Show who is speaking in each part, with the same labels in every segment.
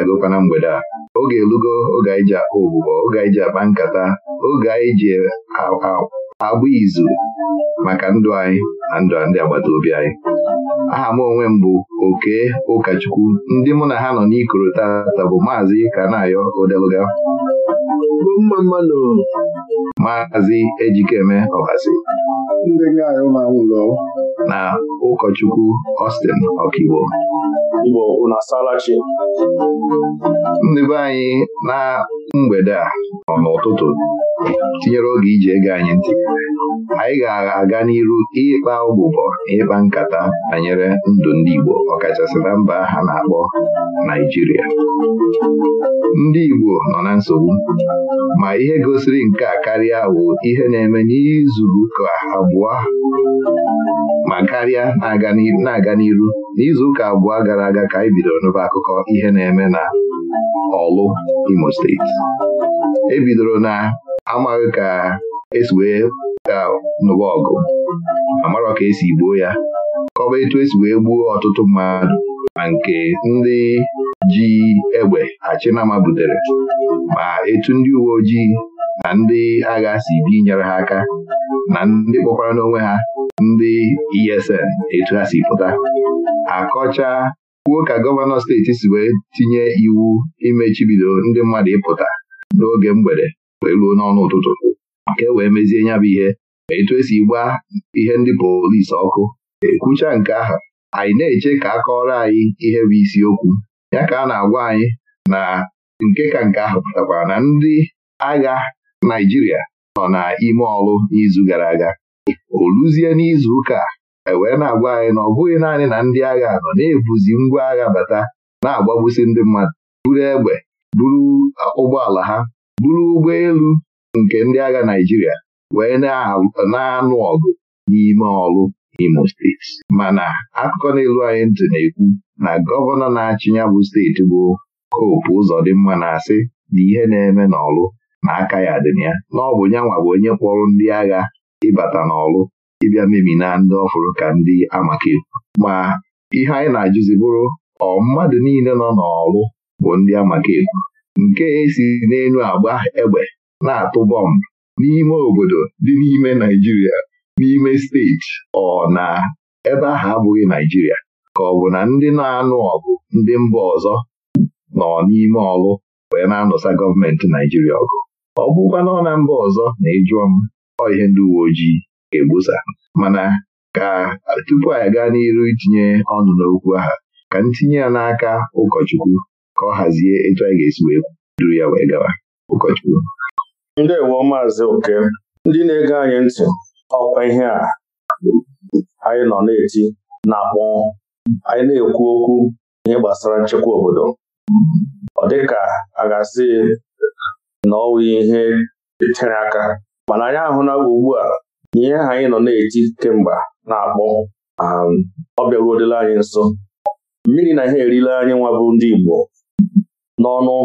Speaker 1: adagokwa na mgbede a oge elugo oge anyị ji akpa oge anyị ji akpa nkata oge anyị ji agba izu maka ndụ anyị na ndụ ndị agbata obi anyị aha m onwe m bụ oke ụkọchukwu ndị mụ na ha nọ n'ikoro tata bụ maazị Kanayo Odeluga maazị Ejikeme Ọbasi na ụkọchukwu ostin Ọkigbo ndị be anyị na mgbede a nọ n'ụtụtụ tinyere oge iji ege anyị ntị anyị ga-aga n'iru ịkpa ụbụbọ ịkpa nkata banyere ndụ ndị Igbo ọkachasị na mba ha na-akpọ Naijiria ndị Igbo nọ na nsogbu ma ihe gosiri nke a karịa bụ ihe na-eme n'izuụka abụọ ma karịa na-aga n'iru n'izuụka ụka abụọ gara aga aga ka anyị bidoro n'ụba akụkọ ihe na-eme na ọlụ Imo steeti ebidoro na amaghị ka esi wee nụba ọgụ amarọ ka esi gbuo ya kọba etu esi wee gbuo ọtụtụ mmadụ ma nke ndị ji egbe achịnama butere ma etu ndị uwe ojii na ndị agha si bi nyere ha aka na ndị kpọkwara n'onwe ha ndị ESN etu ha si pụta akọcha kwuo ka gọvanọ steeti si wee tinye iwu imechibido ndị mmadụ ịpụta n'oge mgbede wee ruo n'ọnụ ụtụtụ ka e wee mezie nya bụ ihe ma etu esi gba ihe ndị polisi ọkụ ekwucha nke ahụ anyị na-eche ka a kọrọ anyị ihe bụ isiokwu ya ka a na-agwa anyị na nke ka nke ahụ pụtakwara na ndị agha Naijiria nọ n'ime ọrụ n'izu gara aga o luzie n'izu ụka e wee na-agwa anyị na ọ bụghị naanị na ndị agha nọ na-ebuzi ngwa agha bata na-agbagbusi ndị mmadụ buru egbe buru ụgbọala ha buru ụgbọelu nke ndị agha Naịjirịa wee na-anụ ọgụ n'ime ọrụ Imo steeti mana akụkọ n'elu anyị ntị na-ekwu na gọvanọ na-achị ya bụ steeti bụ Hope mma na-asị na ihe na-eme n'ọrụ na aka ya dị na ya na ọ bụ nyanwa bụ onye kpọrọ ndị agha ịbata n'ọrụ ịbịa mebi na ndị ọfụrụ ka ndị amaka ma ihe anyị na-ajụzi bụrụ ọ mmadụ niile nọ n'ọrụ bụ ndị amaka nke esi n'elu agba egbe na-atụ bọmbụ n'ime obodo dị n'ime Naijiria n'ime steeti ọ na ebe ahụ abụghị Naijiria ka ọ bụ na ndị na-anụ ọgụ ndị mba ọzọ nọ n'ime ọrụ wee na-anụsa gọọmenti Naijiria ọgụ ọ bụkwa nọ na mba ọzọ na ịjụọ m ọ ihe ndị uwe ojii ga-egbusa mana ka tupu anyị gaa n'iru itinye ọnụ n'okwu aha ka ntinye ya n'aka ụkọchukwu ka ọ hazie etu anyị ga-esi wee duru ya wee gawa ụkọchukwu ndewo maazị oke ndị na-ege anyị ntị ọkwa ihe a anyị nọ na-eti na-akpọ anyị na-ekwu okwu ihe gbasara nchekwa obodo ọ dịka a ga-asị na ọ nwe ihe tere aka mana anyị ahụ na ugbu a ihe ahụ anyị nọ na eji kemgbe na-akpọ um, ọ anyị nso mmiri na ihe erila anyị nwa bụ ndị Igbo n'ọnụ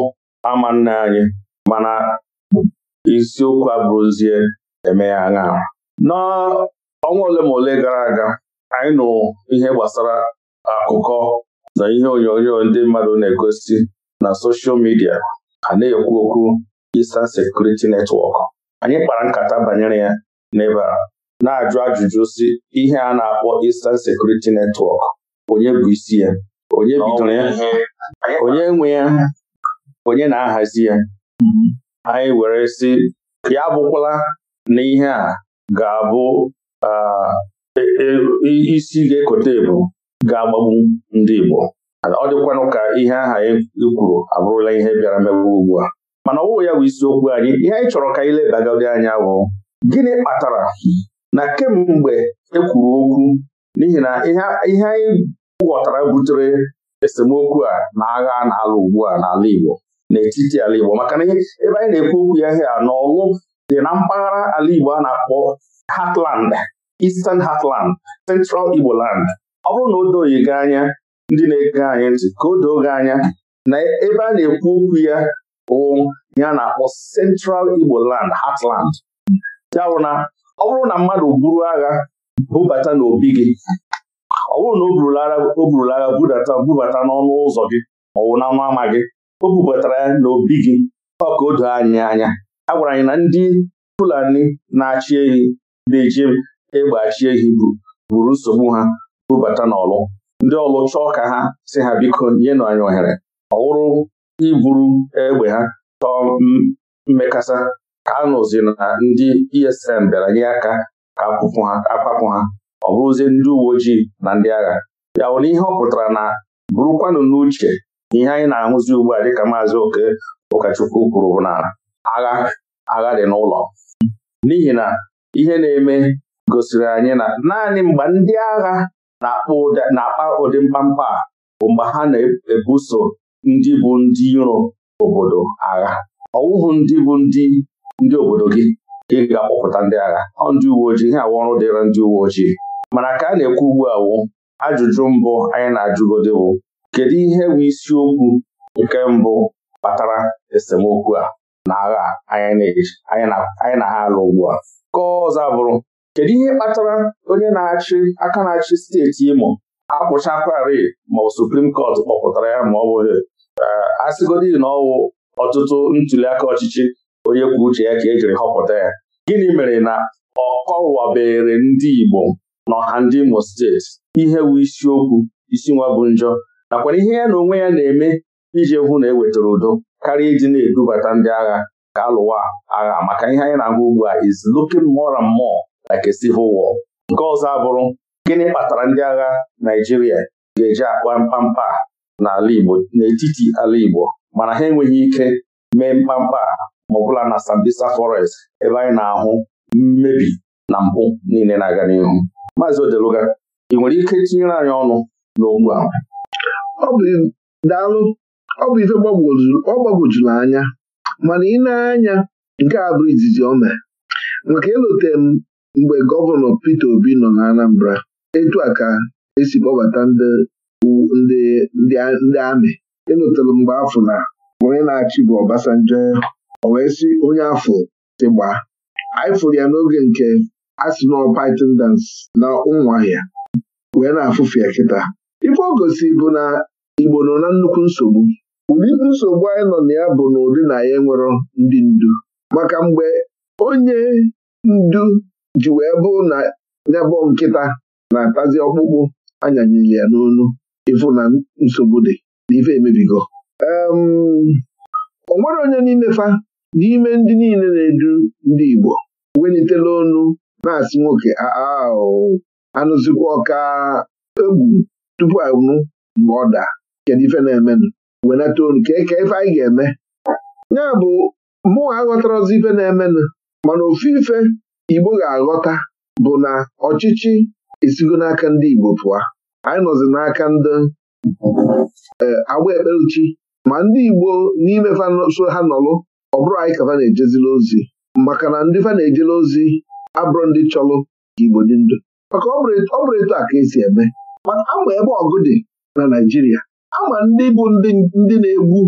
Speaker 1: ama nna anyị mana isiokwu abụrụzie eme ya aṅa n'ọnwa ole ma ole gara aga anyị nụrụ ihe gbasara akụkọ na ihe onyonyo ndị mmadụ na-egosi na soshal midia a na-ekwu okwu Eastern sekuriti Network anyị kpara nkata banyere ya n'ebe na-ajụ ajụjụ si ihe a na-akpọ Eastern Security Network onye bụ isi ya onye bidoro ya onye nwe ya onye na-ahazi ya anyị were sị ya abụkwala na ihe a ga-abụ e, e, isi ga-ekote ebu ga-agbagbu ndị Igbo ọ dịkwanụ ka ihe aha anyị e kwuru abụrụla ihe bịara megbu ugbu a mana ọwụwụ ya bụ isiokwu anyị ihe anyị chọrọ ka anyị lebagodi anya bụ gịnị kpatara na kemgbe ekwuru okwu n'ihi na ihe anyị ghọtara butere esemokwu a na agha na-alụ ugbu a n'ala Igbo n'etiti ala Igbo maka na ebe anyị na-ekwu okwu ya ihe a n'ọlụ dị na mpaghara ala Igbo a na-akpọ Hatland Eastern Hatland Central Igbo Land ọ bụrụ na o doghị gị anya ndị na-ege anyị ntị ka o doo gị anya na ebe a na-ekwu okwu ya bụ ya na-akpọ Central Igbo Land Hatland. ya bụ na ọ bụrụ na mmadụ buru agha bubata n'obi gị ọ bụrụ na o burula agha bubata n'ọnụ ụzọ gị ma ọ bụ n'ọnụ ama gị o bubatara ya n'obi gị ọ ka o doo anyị anya a gwara anyị na ndị Fulani na-achị ehi na-eji egbe achị ehi buru nsogbu ha bubata n'ọlụ ndị ọlụ chọọ ka ha si ha biko nyenụ anyị ohere ọ wụrụ iburu egbe ha chọọ mmekasa a nụzi na ndị esm bịara nye aka ka akwapụ ha ọ bụrụzie ndị uwe ojii na ndị agha ya bụ ihe ọ pụtara na bụrụkwanụ n'uche ihe anyị na-ahụzi ugbu a dịka maazị oke ụkọchukwu kwuru bụ na agha agha dị n'ụlọ n'ihi na ihe na-eme gosiri anyị na naanị mgbe ndị agha na-akpa ụdị mkpamkpa bụ mgbe ha na-ebuso ndị bụ ndị iro obodo agha ọwụhụ ndị bụ ndị ndị obodo gị ka ị ga-akpọpụta ndị agha ọ ndị uwe ojii ihe awa ọrụ dịra ndị uwe ojii mana ka a na-ekwu ugbu a wụ ajụjụ mbụ anyị na-ajụgode bụ kedu ihe bụ isiokwu nke mbụ kpatara esemokwu a na agha anyị na ha alụ ugbu a Kọọ ọzọ bụrụ kedu ihe kpatara onye na-achị aka na-achị steeti Imo akwụchakwari ma suprim Supreme kpọpụtara ya ma ọ bụghị eh, asịgodi na ọwụ ọtụtụ ntuliaka ọchịchị onye kwuo uche ya ka e jiri họpụta ya gịnị mere na ọ kọwabere ndị Igbo n'ọha ndị Imo steeti ihe wu isiokwu isi nwa bụ njọ nakwana ihe ya na onwe ya na-eme iji hụ na ewetara udo karịa iji na-edubata ndị agha ka alụwa agha maka ihe anyị na-ahụ ugbu a is looking more and more like a civil war. nke ọzọ abụrụ gịnị kpatara ndị agha Naịjirịa ga-eji akpa mkpamkpa n'ala Igbo n'etiti ala Igbo mana ha enweghị ike mee mkpamkpa ma na Sambisa Forest ebe anyị na-ahụ mmebi na mpụ niile na-aga n'ihu Maazị Odeluga ị nwere ike tinyere anyị ọnụ n'okwu ahụ daalụ ọ bụ ife ọ gbagwojuru anya mana ị anya nke a bụ izizi o mere maka elote m mgbe gọvanọ Peter Obi nọ na Anambra etu a ka esi kpọbata ndị amị elotere mgbe afọ na onye na-achị bụ Obasanjo o wee sị onye afọ si gbaa anyị fụrụ ya n'oge nke Arsenal Python dance na ụmụahịa wee na-afụfe ya kịta ife Ogosi bụ na Igbo nọ na nnukwu nsogbu ụdị nsogbu anyị nọ na ya bụ na ụdị na ya nwere ndị ndu maka mgbe onye ndu ji wee bụ na nyabọ nkịta na-atazi ọkpụkpụ anyanyere ya n'onu ịfụ na nsogbu dị na ife emebigo o onye n'ime fa n'ime ndị niile na-edu ndị Igbo welitela ọnụ na-asị nwoke ah, ah, anụzikwa ọka egwu tupu anwụ mgbe ọ daa kedu ife na-emenụ wenata olu ka eke ife anyị ga-eme ya bụ mụnwa aghọtara ọzọ ife na-emenụ mana ofu ife Igbo ga-aghọta bụ na ọchịchị esigo n'aka ndị Igbo pụọ anyị nọzi n'aka ndị eh, agba ekpeluchi ma ndị Igbo n'ime so ha nọlụ ọ bụrụ anyị ka fa na-ejezila ozi maka na ndị fa na-ejela ozi abụrụ ndị chọlụ ka Igbo dị ndụ maka ọ bụrụ etu a ka esi eme maka ama ebe ọgụ dị na Naijiria ama ndị bụ ndị na-egbu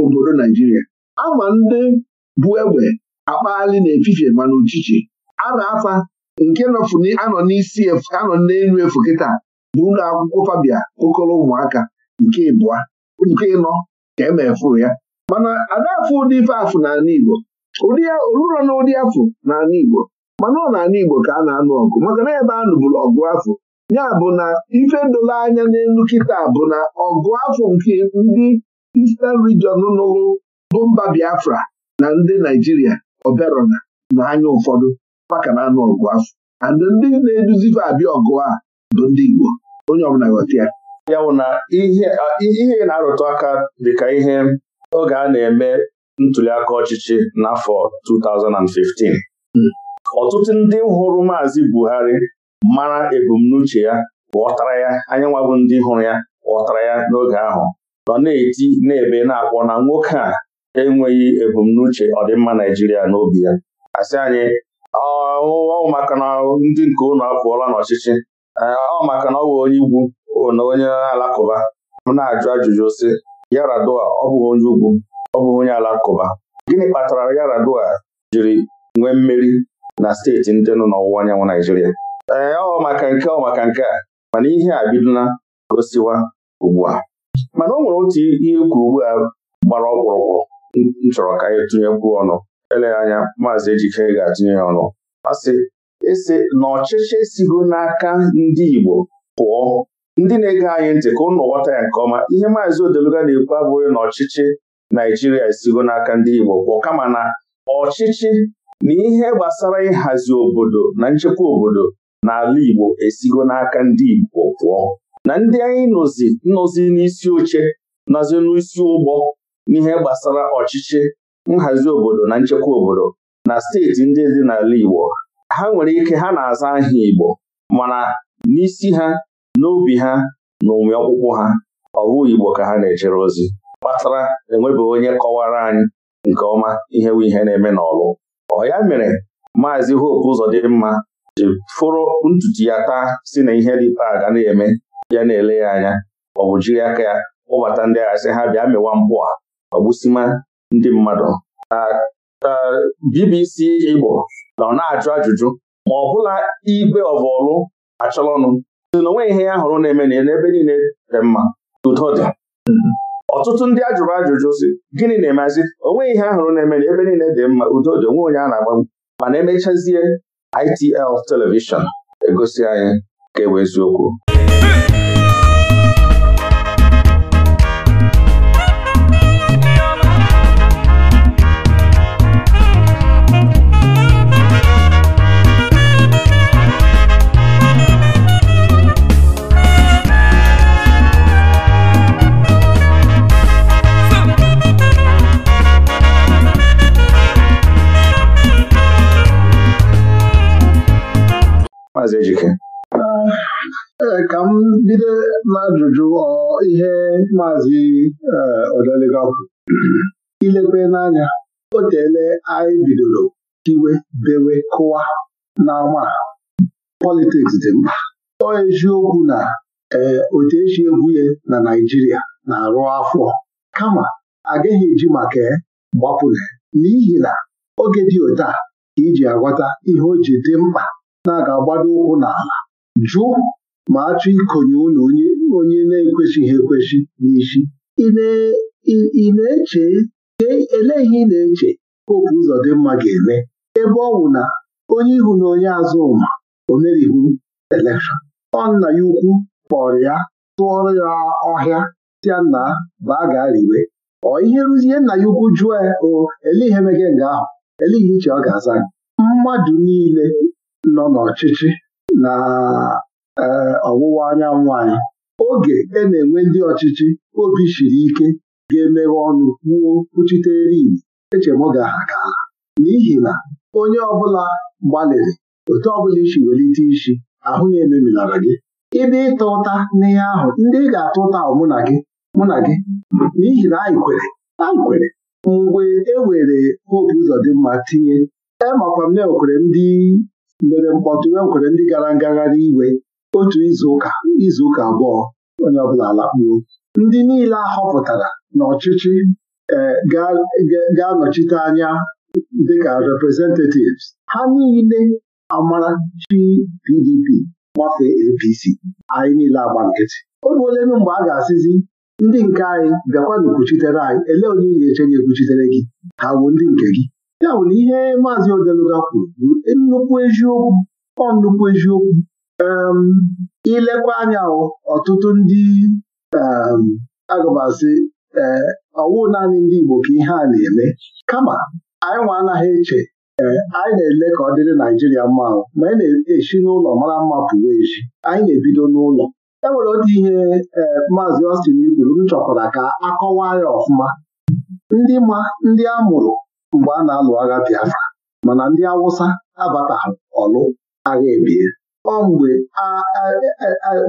Speaker 1: obodo Naijiria ama ndị bụ egbe akpaali na-efifie mana uchichi a na-afa nke anọ n'isi anọ n'elu efu kịta bụ ụlọ akwụkwọ Fabia okolo ụmụaka nke ịbụa nke ịnọ ka emefu ya mana adafụ ụdị ife afụ n'ala Igbo oluro na ụdị afụ n'ala Igbo mana ọ n'ala Igbo ka a na-anụ ọgụ maka na ebe a nụbụrụ ọgụ afụ ya bụ na ife doro anya n'elu kịta bụ na ọgụ afụ nke ndị Eastern Region nụrụ bụ mba Biafra na ndị Naijiria oberona na anya ụfọdụ maka na anụ ọgụ afọ and ndị na-eduzife abịa ọgụ a bụ ndị Igbo onye ọbụla ghọta ya ya bụ na ihe na-arụtụ aka dịka ihe oge a na-eme ntuliaka ọchịchị n'afọ 2015 ọtụtụ ndị hụrụ Maazị Buhari mara ebumnuche ya ghọtara ya anyị ndị hụrụ ya ghọtara ya n'oge ahụ nọ na-eti na-ebe na-akpọ na nwoke a enweghị ebumnuche ọdịmma Naijiria n'obi ya asị anyị ọ maka na ndị nke ụnụ apụọla n'ọchịchị ọ na ọ bụ onye Igbo na onye Alakụba m na-ajụ ajụjụ sị Yaradua ọ bụghị onye ugwu ọ bụghị onye alakụba gịnị kpatara Yaradua jiri nwee mmeri na steeti ndị nọ n'ọwụwa anyanwụ Naijiria ee ọ maka nke ọ maka nke a mana ihe a bidola gosiwa ugbu a mana o nwere otu ihe ukwu ugbu a gbara ọkpụrụkpụ m chọrọ ka anyị tụnyekwuo ọnụ eleghị anya maazị Ejike ga-atụnye ya ọnụ Ọ sị esi na ọchịchị esigo n'aka ndị Igbo pụọ ndị na-ege anyị ntị ka ụnụ ghọta ya nke ọma ihe maazị Odeluga na-ekwu abụghị na ọchịchị Naijiria esigo n'aka ndị Igbo bụ kama na ọchịchị na ihe gbasara ịhazi obodo na nchekwa obodo n'ala Igbo esigo n'aka ndị Igbo pụọ na ndị anyị nọzi nnọzi n'isi oche nọzi n'isi ụgbọ n'ihe gbasara ọchịchị nhazi obodo na nchekwa obodo na steeti ndị dị n'ala Igbo ha nwere ike ha na-aza aha Igbo mana n'isi ha n'obi ha na ụmụ ọkpụkpụ ha ọ bụ Igbo ka ha na-ejere ozi kpatara enwebeghị onye kọwara anyị nke ọma ihe bụ ihe na-eme n'ọlụ ọ ya mere maazị Hope mma ji fụrụ ntutu ya taa si na ihe dịpa ga na-eme ya na-ele ya anya ọ bụ jiri aka ya kpọbata ndị agha sị ha bịa mewa mpụ a ọgbụsima ndị mmadụ BBC Igbo nọ na-ajụ ajụjụ ma ọ bụla igwe ọvọlụ achọrọnụ na onwe ihe ya hụrụ na-eme na n'ebe niile dị mma udo dị ọtụtụ ndị ajụrụ ajụjụ si gịnị na-emezi onwe ihe ahụrụ na-eme na ebe niile dị mma udo dị onwe onye a na agba mana emechazie ITL telivishọn egosi anyị ka ewe eziokwu Maazị Ejike ah, eh, ka m bido n'ajụjụ ihe maazị eh, Odelega ilekwe n'anya o teele anyị bidoro iwe bewe kụwa n'ama politiks dị mkpa ọ eziokwu na eh, otu esi egwu ya na Naịjirịa na-arụ afọ kama agaghị eji maka gbapụrụ n'ihi na oge dị ụta ka iji agwata ihe o ji dị mkpa na-aga agbado ụkwụ n'ala jụ ma achọ ikonye unu onye na-ekwesịghị ekwesị n'isi ị na-eche e, elee ihe ị na-eche popu ụzọ dị mma ga-eme ebe ọ bụ na onye ihu na onye azụ ma o merighị elekshọn ọ nna ya ukwu kpọrọ ya tụọrọ ya ọhịa tịa nna baa gaa riwe ọ ihe rụzie nna ya ukwu jụọ ya o ele ihe mege nga ahụ ele ihe iche ọ ga-aza gị mmadụ niile nọ n'ọchịchị na e, ọwụwa anyanwụ anyị oge e na-enwe ndị ọchịchị obi shiri ike ga-emeghe ọnụ kwuo kwuchitere igbo echemoga ga ka n'ihi na onye ọbụla gbalịrị otu ọbụla isi welite isi ahụ na-emebilara gị Ịbịa ịta ụta n'ihe ahụ ndị ị ga-ata ụta ahụ mụ na gị mụ na gị n'ihi na anyị kwere anyị kwere mgbe e were dị mma tinye emakwa m na e ndị mere mkpọtụ e nkwere ndị gara ngagharị iwe otu izuụka izuụka abụọ onye ọbụla lakpuo ndị niile a họpụtara n'ọchịchị e, ga-anọchite anya dịka representatives ha niile amarachi PDP gbafee APC anyị niile agba nkịtị oge ole mgbe a ga-asịzi ndị nke anyị bịakwa na anyị ele onye ga-eche gị ekwuchitere gị ha bụ ndị nke gị ya bụ na ihe maazị Odeluga kwuru bụ nnukwu eziokwu ọ nnukwu eziokwu um, ilekwa anya ọtụtụ ndị um, agụbasị eh, ọwụ naanị ndị Igbo ka ihe a na-eme kama anyị nwa anaghị eche eh, anyị na-ele ka ọ dịrị Naijiria mma ma anyị na-esi n'ụlọ mara mma pụrụ echi, anyị na-ebido n'ụlọ e nwere otu ihe eh, maazị Austin kwuru m chọkwara ka akọwa ya ọfụma ndị ma ndị a mụrụ mgbe a na-alụ agha Biafra mana ndị Awụsa abatahụ ọlụ agha ebie ọ mgbe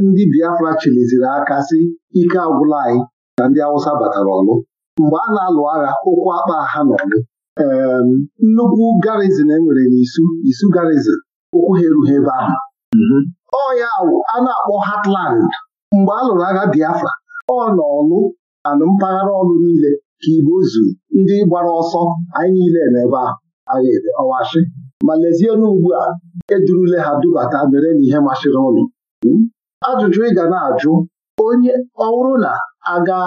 Speaker 1: ndị Biafra chịliziri aka si ike agwụla anyị na ndị Awụsa batara ọlụ mgbe a na-alụ agha ụkwụ akpa ha n'ọlụ ee nnukwu garizin enwere n'isu isu garizin ụkwụ ha erughị ebe ahụ mhm. ọ ya a na-akpọ Hatland. mgbe a lụrụ agha Biafra ọ n'ọlụ anụ mpaghara ọlụ niile ka igbo zu ndị gbara ọsọ anyị niile n'ebe ahụ ede ọwashi ma lezienụ ugbu a edurule ha dubata mere na ihe masịrị ụnụ hmm? ajụjụ ị ga na-ajụ onye ọhụrụ na aga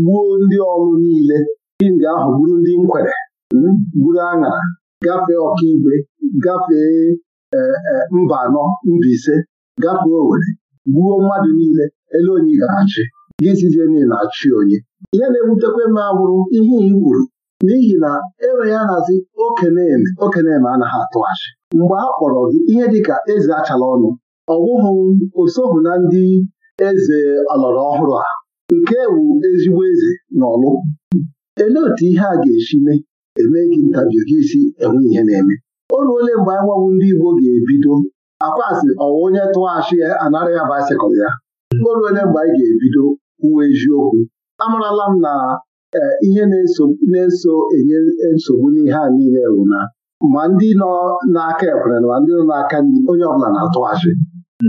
Speaker 1: gbuo ndị ọrụ niile nga ahụ gburu ndị nkwere hmm? gburu aṅara gafee ọkaigwe gafee e, e, mba anọ mba ise gafee owere gbuo mmadụ niile ele onye ga-achị gịzizie niile na-achị onye ihe na-ewutekwe m agwụrụ ihe igburu n'ihi na enweghị ahazi okeneme okeneme anaghị atụghachi mgbe a kpọrọ gị ihe dịka eze achala ọnụ ọwụhụ osohụ na ndị eze ọlọrọ ọhụrụ a nke wu ezigbo eze na ọlụ elee otu ihe a ga-esi mee eme gị ntabi gị isi enweghị ihe na-eme o ruole mgbe anyị nwawu ndị Igbo ga-ebido akwasị ọwa onye tụghachi anara ya baịsịkụl ya o ruole mgbe anyị ga-ebido uwe eziokwu amarala m na e, ihe na-eso enye nsogbu n'ihe a niile bụ na ma ndị nọ n'aka ekwere na ma ndị nọ n'aka nri onye ọbụla na-atụghachi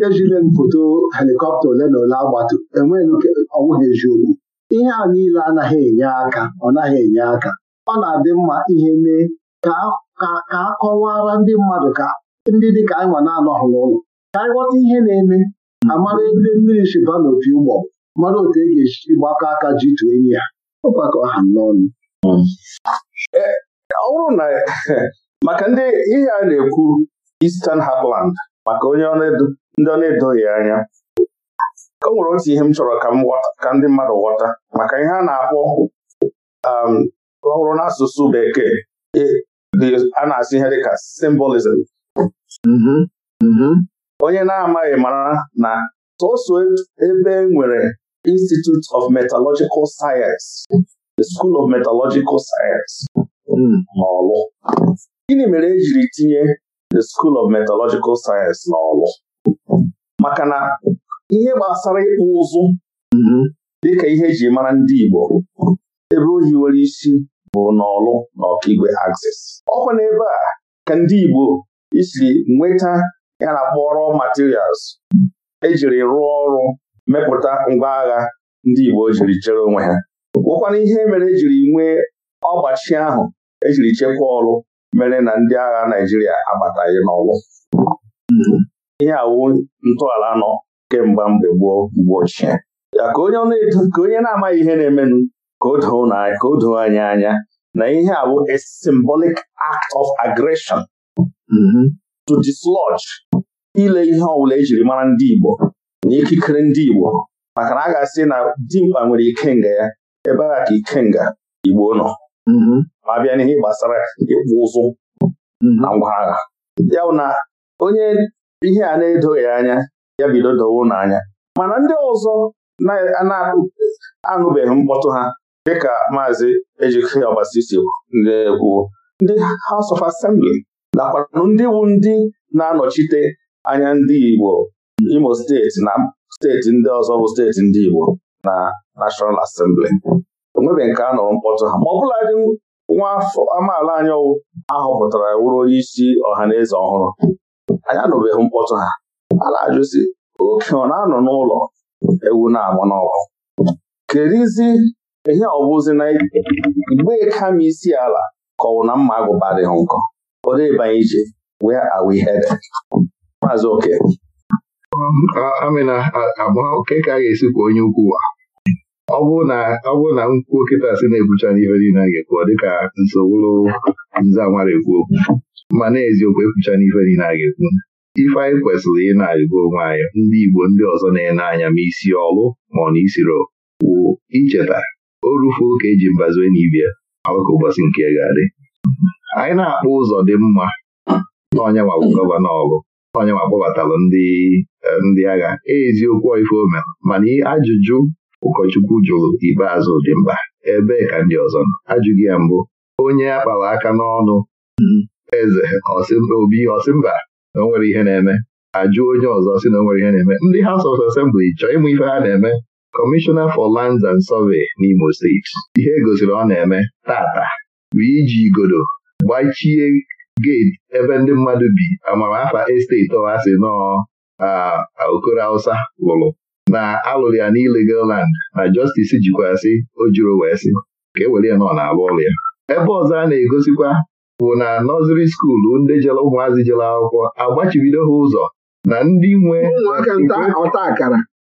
Speaker 1: ejile m foto helikọpta ole na ole agbatu enweghị ọnwụghị eziokwu ihe a niile anaghị enye aka ọ naghị enye aka ọ na-adị mma ihe mee ka a kọwara ndị mmadụ ka ndị dị ka anyị nwa na-anọghị n'ụlọ ka anyị ghọta ihe na-eme amara ebe mmiri shiba opi ụgbọ mmadụ otu e ga-eji gbakọ aka ji tụọ enyi ya ọgbakọ ha n'ọnụ hmm. eh, ọ bụrụ na maka ndị ihe a na-ekwu Eastern Heartland maka onye ndị ọ na-edoghị anya o nwere otu ihe m chọrọ ka ndị mmadụ ghọta maka ihe a na-akpọ um, ọhụrụ n'asụsụ bekee e, a na-asụ ihe dịka symbolism mm-hmm. Mm-hmm. onye na-amaghị mara na sọsọ ebe e nwere Institute of Metallurgical Science the School of Metallurgical Science hmm. n'Ọlụ gịnị mere ejiri tinye the School of Metallurgical Science n'Ọlụ maka na ihe gbasara ịkpụ ụzụ mm-hmm. dịka ihe eji mara ndị Igbo ebe ohi nwere isi bụ n'Ọlụ na Ọkigwe Axis ọkwa n'ebe a ka ndị Igbo isiri nweta ya na kpọrọ materials ejiri rụọ ọrụ mepụta ngwa agha ndị Igbo e jiri chere onwe ha bụkwana ihe mere ejiri nwee ọgbachi ahụ ejiri chekwaa ọrụ mere na ndị agha Naijiria abataghị n'ọlụ. ihe awụ ntọala nọ kemgbe mgbe gboo mgbe ochie ya ka onye na-amaghị ihe na-emenụ ka o doo anyị anya na ihe a bụ a symbolic act of aggression mm-hmm. to dislodge ile ihe ọbụla ejiri mara ndị Igbo na ikikere ndị Igbo maka na a ga-asị na dimkpa nwere ikenga ya ebe a ka ikenga Igbo nọ ma mm-hmm. bịa n'ihe gbasara ịkpụ ụzụ mm-hmm. na ngwa agha ya na onye ihe a na-edoghị anya ya bido dowo n'anya mana ndị ọzọ na-anụbeghị mkpọtụ ha dịka maazị Ejike Ọbasisi ndị kwuo ndị House of Assembly nakwanụ ndị bụ ndị na-anọchite anya ndị Igbo Imo steeti na steeti ndị ọzọ bụ steeti ndị Igbo na National Assembly onwebeghị nke a nụrụ mkpọtụ ha ma ọ bụladị nwa afọ amaala anyị ahọpụtara wụrụ onye isi ọha na eze ọhụrụ anyị nụbeghị mkpọtụ ha a na-ajụzi oke ọ na-anọ n'ụlọ ewu na-amụ n'ọgụ kerizi ihe ọbụzi na igbe kama isi ala kọwụ na mma agụba adịghị nkọ ọ dịbanye ije where are we headed maazị oke amịna amaka ka a ga-esi kwa onye ukwu a. ọ bụ na nkwuo kịta si na-ebucha n'ihe niile a ga-ekwu dịka nsogbu nza nwara ekwu okwu ma na-eziokwu ekwucha n'ife niile a ga-ekwu ife anyị kwesịrị ị na-arịgo onwe anyị ndị Igbo ndị ọzọ na-ele anya ma isi ọlụ ma ọ na isiro wụ icheta o rufuo ka eji mbazue n'ibia ọkụkọ ụbọchị nke ga-adị anyị na-akpọ ụzọ dị mma n'ọnya ma bụ gọvanọ ọlụ ma akpọbatalụ ndị ndị agha e eziokwu ife mere mana ajụjụ ụkọchukwu jụrụ ikpeazụ dị mkpa ebee ka ndị ọzọ nọ ajụghị ya mbụ onye a kpara aka n'ọnụ eze obi mba, na o nwere ihe na-eme ajụ onye ọzọ sị na o nwere ihe na-eme ndị House of Assembly chọọ ịmụ ife ha na-eme Kọmishọna for Lands and Survey n'Imo steeti ihe e gosiri ọ na-eme tata bụ iji igodo gbachie geti ebe ndị mmadụ bi amamafa esteti ọhasị nọọ okoro Hausa lụrụ na alụrụ ya n'illegal land na justice jikwasị o juru wee sị ka e ya nọ na-alụ ọrụ ya ebe ọzọ a na-egosikwa bụ na nọziri skuulu ndị jere ụmụazị jere akwụkwọ agbachibido ha ụzọ na ndị nwe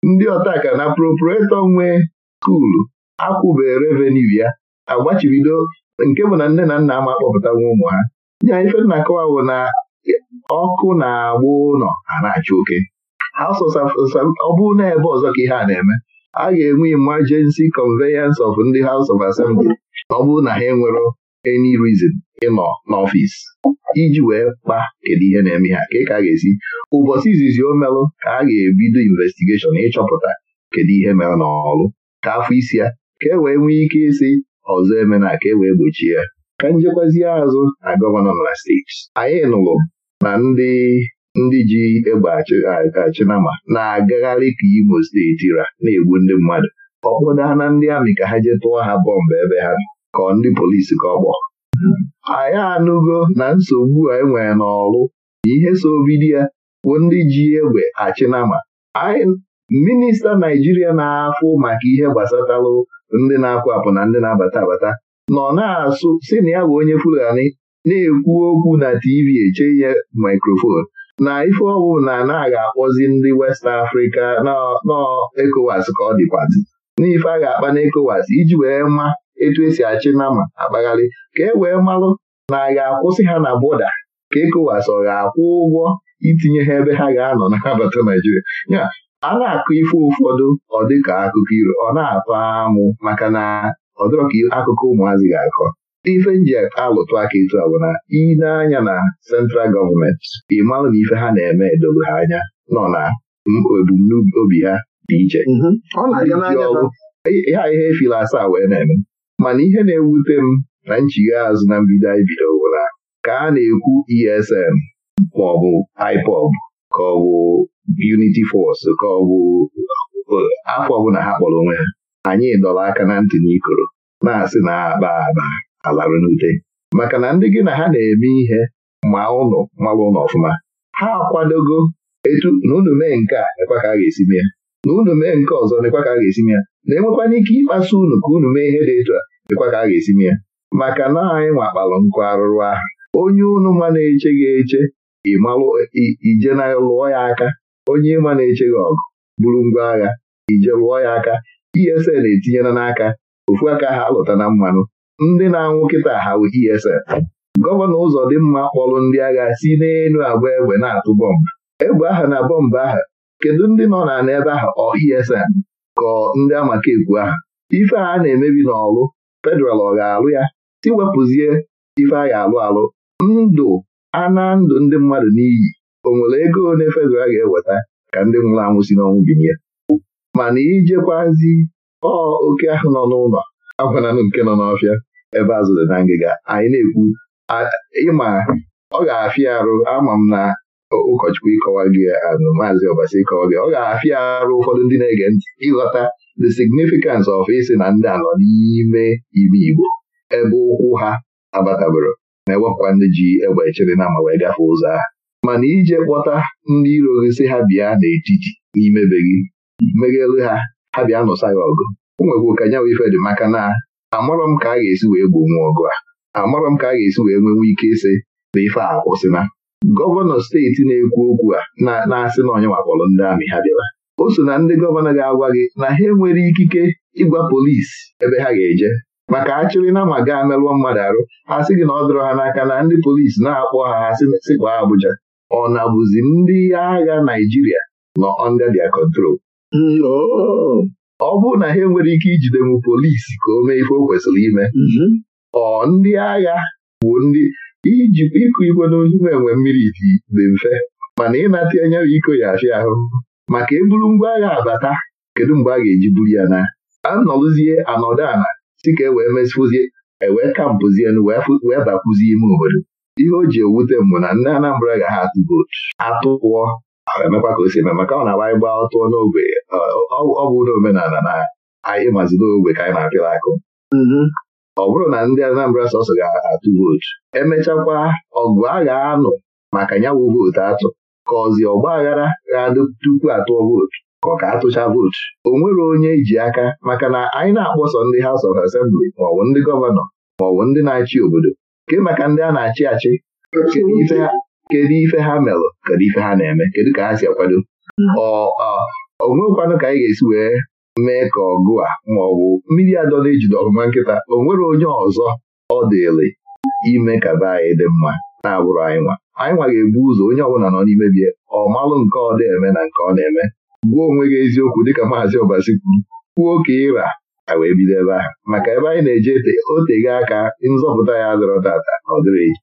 Speaker 1: ndị ọtakara na proprietor nwe skuulu akwụbe revenu ya agbachibido nke bụ na nne na nna ama akpọpụta nwa ụmụ ha ya ife nna akọwa bụ na ọkụ na-agba ụlọ a na achọ oke ọ bụrụ na ebe ọzọ ka ihe a na-eme a ga-enwe emergency conveyance of ndị House of Assembly ọ bụrụ na ha enwere any reason ịnọ n'ọfịs iji wee kpa kedu ihe na-eme ha ka ka a ga-esi ụbọchị izizi o melụ ka a ga-ebido investigeshon ịchọpụta kedu ihe mere n'ọrụ ka afọ isi ya ka e wee nwee ike isi ọzọ emena ka e wee gbochie ya ka njekwazie azụ na gọvanọ na steeti anyị nụrụ na ndị ndị ji egbe achịnama na-agagharị ka Imo steeti ra na-egbu ndị mmadụ ọ na ndị amị ka ha jee tụọ ha bọmbụ ebe ha ka ndị polisi ka ọ kpọọ anyị anụgo na nsogbu anyị e nwere n'ọrụ ihe so bido ya bụ ndị ji egbe achịnama minista Naijiria na-afụ maka ihe gbasatalụ ndị na apụ apụ na ndị na-abata abata nọ na-asụ si na ya bụ onye Fulani na-ekwu okwu na TV eche ihe mikrofon na ife ọwụ na na-aga akpọzi ndị West Africa nọ ECOWAS ka ọ dịkwazi ife a ga-akpa na ekowas iji wee ma etu esi achị nama akpagharị ka e wee marụ na a ga-akwụsị ha na bọda ka ekowas ọ ga-akwụ ụgwọ itinye ha ebe ha ga-anọ na abata Naijiria ya a na-akụ ife ụfọdụ ọ dịka akụkọ iro ọ na-atọ amụ maka na ọ ka akụkọ ụmụazị ga-akọ ife nji alụtụ aka etu a bụ na ị na-anya na sentral gọọmenti ị na ife ha na-eme edoro ha anya nọ na ebumnobi ha dị iche mhm. e- ha ihe efila asaa wee na-eme mana ihe na-ewute m na nchigha azụ na mbido anyị bido bụ na ka a na-ekwu ESN maọbụ IPOB ka ọ bụ Unity Force ka ọ bụ afọ ọbụla ha kpọrọ onwe ha anyị dọrọ aka na ntị n'ikoro na-asị na akpa akpa alarụ n'ute maka na ndị gị na ha na-eme ihe ma ụnụ mara ụnụ ọfụma ha akwadogo etu na unu mee nke a nekwa ka a ga-esi mee ya na unu mee nke ọzọ nekwa ka a ga-esi mee ya na-enwekwana ike ịkpasu unu ka unu mee ihe dị etu a nekwa ka a ga-esi mee ya maka na anyị nwakpalụ nkụ arụrụ ahụ onye unu ma na-eche gị eche ịmalụ ije na lụọ ya aka onye ịma na-eche gị ọgụ bụrụ ngwa agha ije lụọ ya aka ESN etinyela n'aka ofu aka ha lụta na mmanụ ndị na-anwụ kịta ha bụ ESN gọvanọ mma kpọrọ ndị agha si n'elu agba egbe na-atụ bọmbụ egbe aha na bọmbụ aha kedu ndị nọ na n'ebe ahụ ọ ESN ka ndị amaka ekwu aha ife a na-emebi n'ọlụ federal ọ ga-alụ ya tiwepụzie ife a ga-alụ alụ ndụ ana ndụ ndị mmadụ n'iyi onwere ego one federal ga-eweta ka ndị nwụrụ anwụ si n'ọnwụ binye mana ijekwazi ọ oke ahụ nọ n'ụlọ agwananụ nke nọ n'ọfịa ebe azụ dị na ngịga anyị na-ekwu ịma ọ ga-afịa arụ ama m na ụkọchukwu ịkọwa gị anụ maazị ọbasi ịkọwa gị ọ ga-afịa arụ ụfọdụ ndị na-ege ntị ịghọta the significance of isi na ndị anọ n'ime ime Igbo ebe ụkwụ ha abatabụrụ na-ewepụkwa ndị ji egbe echere na ma ụzọ ahụ mana ije kpọta ndị iro gị si ha bịa n'etiti n'ime be gị meghelu ha ha bịa nụsa ya ọgụ o nwekwu ka nyawa ife maka na amarọ m ka a ga-esi wee gbuo nwa ọgụ a amarọ m ka a ga-esi wee nwenwe ike ịsị na ife a kwụsịna gọvanọ steeti na-ekwu okwu a na-asị na onye wakpọrọ ndị amị ha bịara o so na ndị gọvanọ ga-agwa gị na ha enwere ikike ịgwa polisi ebe ha ga-eje maka achịrị na ma gaa merụọ mmadụ arụ ha sị gị na ọ dọrọ ha n'aka na ndị polisi na-akpọ ha ha sịkwa Abuja ọ na bụzi ndị agha Naijiria nọ under control ọ bụrụ na ha enwere ike ijide m polisi ka o mee ife o kwesịrị ime mhm. ọ ndị agha bụ ndị iji ịkụ igwe n'ime enwe mmiri dị mfe mana ịnata enye iko ya afịa ahụ maka eburu ngwa agha abata kedu mgbe a ga-eji buru ya na anọlụzie anọdụ ala si ka e wee mesịpụzie ewee kampụzie wee bakwuzie ime obodo ihe o ji ewute mbụ na ndị Anambra ga ha atụ vootu atụ pụọ emekwa ka o si eme maka ọ na-agba ịgba tụọ n'ogbe ọ bụ omenala na anyị n'ogbe ka anyị na-apịla akụ mm-hmm. ọ bụrụ na ndị Anambra sọsọ ga-atụ vootu emechakwa ọgụ a ga-anụ maka ya wụ vootu atụ ka ọzi ọgba aghara ga-adụ tupu atụọ vootu ka ọ ka atụcha vootu o nwere onye e ji aka maka na anyị na-akpọsọ ndị House of Assembly maọbụ ndị gọvanọ maọbụ ndị na-achị obodo nke maka ndị a na-achị achị kedu ife ha merụ kedu ife ha na-eme kedu ka ha si akwado mm. ọ ka anyị ga-esi wee mee ka ọgụ a ma ọ bụ mmiri na ejide ọgụma nkịta o nwere onye ọzọ ọ dịrị ime ka be anyị dị mma na-abụrụ anyị nwa anyị nwa ga-ebu ụzọ onye ọbụla nọ n'ime bie ọ malụ nke ọ na-eme na nke ọ na-eme gbuo onwe gị eziokwu dịka maazị Ọbasi kwuru kwuo ka ịra a wee bido ebe ahụ maka ebe anyị na-eje oteghe aka nzọpụta ya adọrọ tata na ọ dịrị eji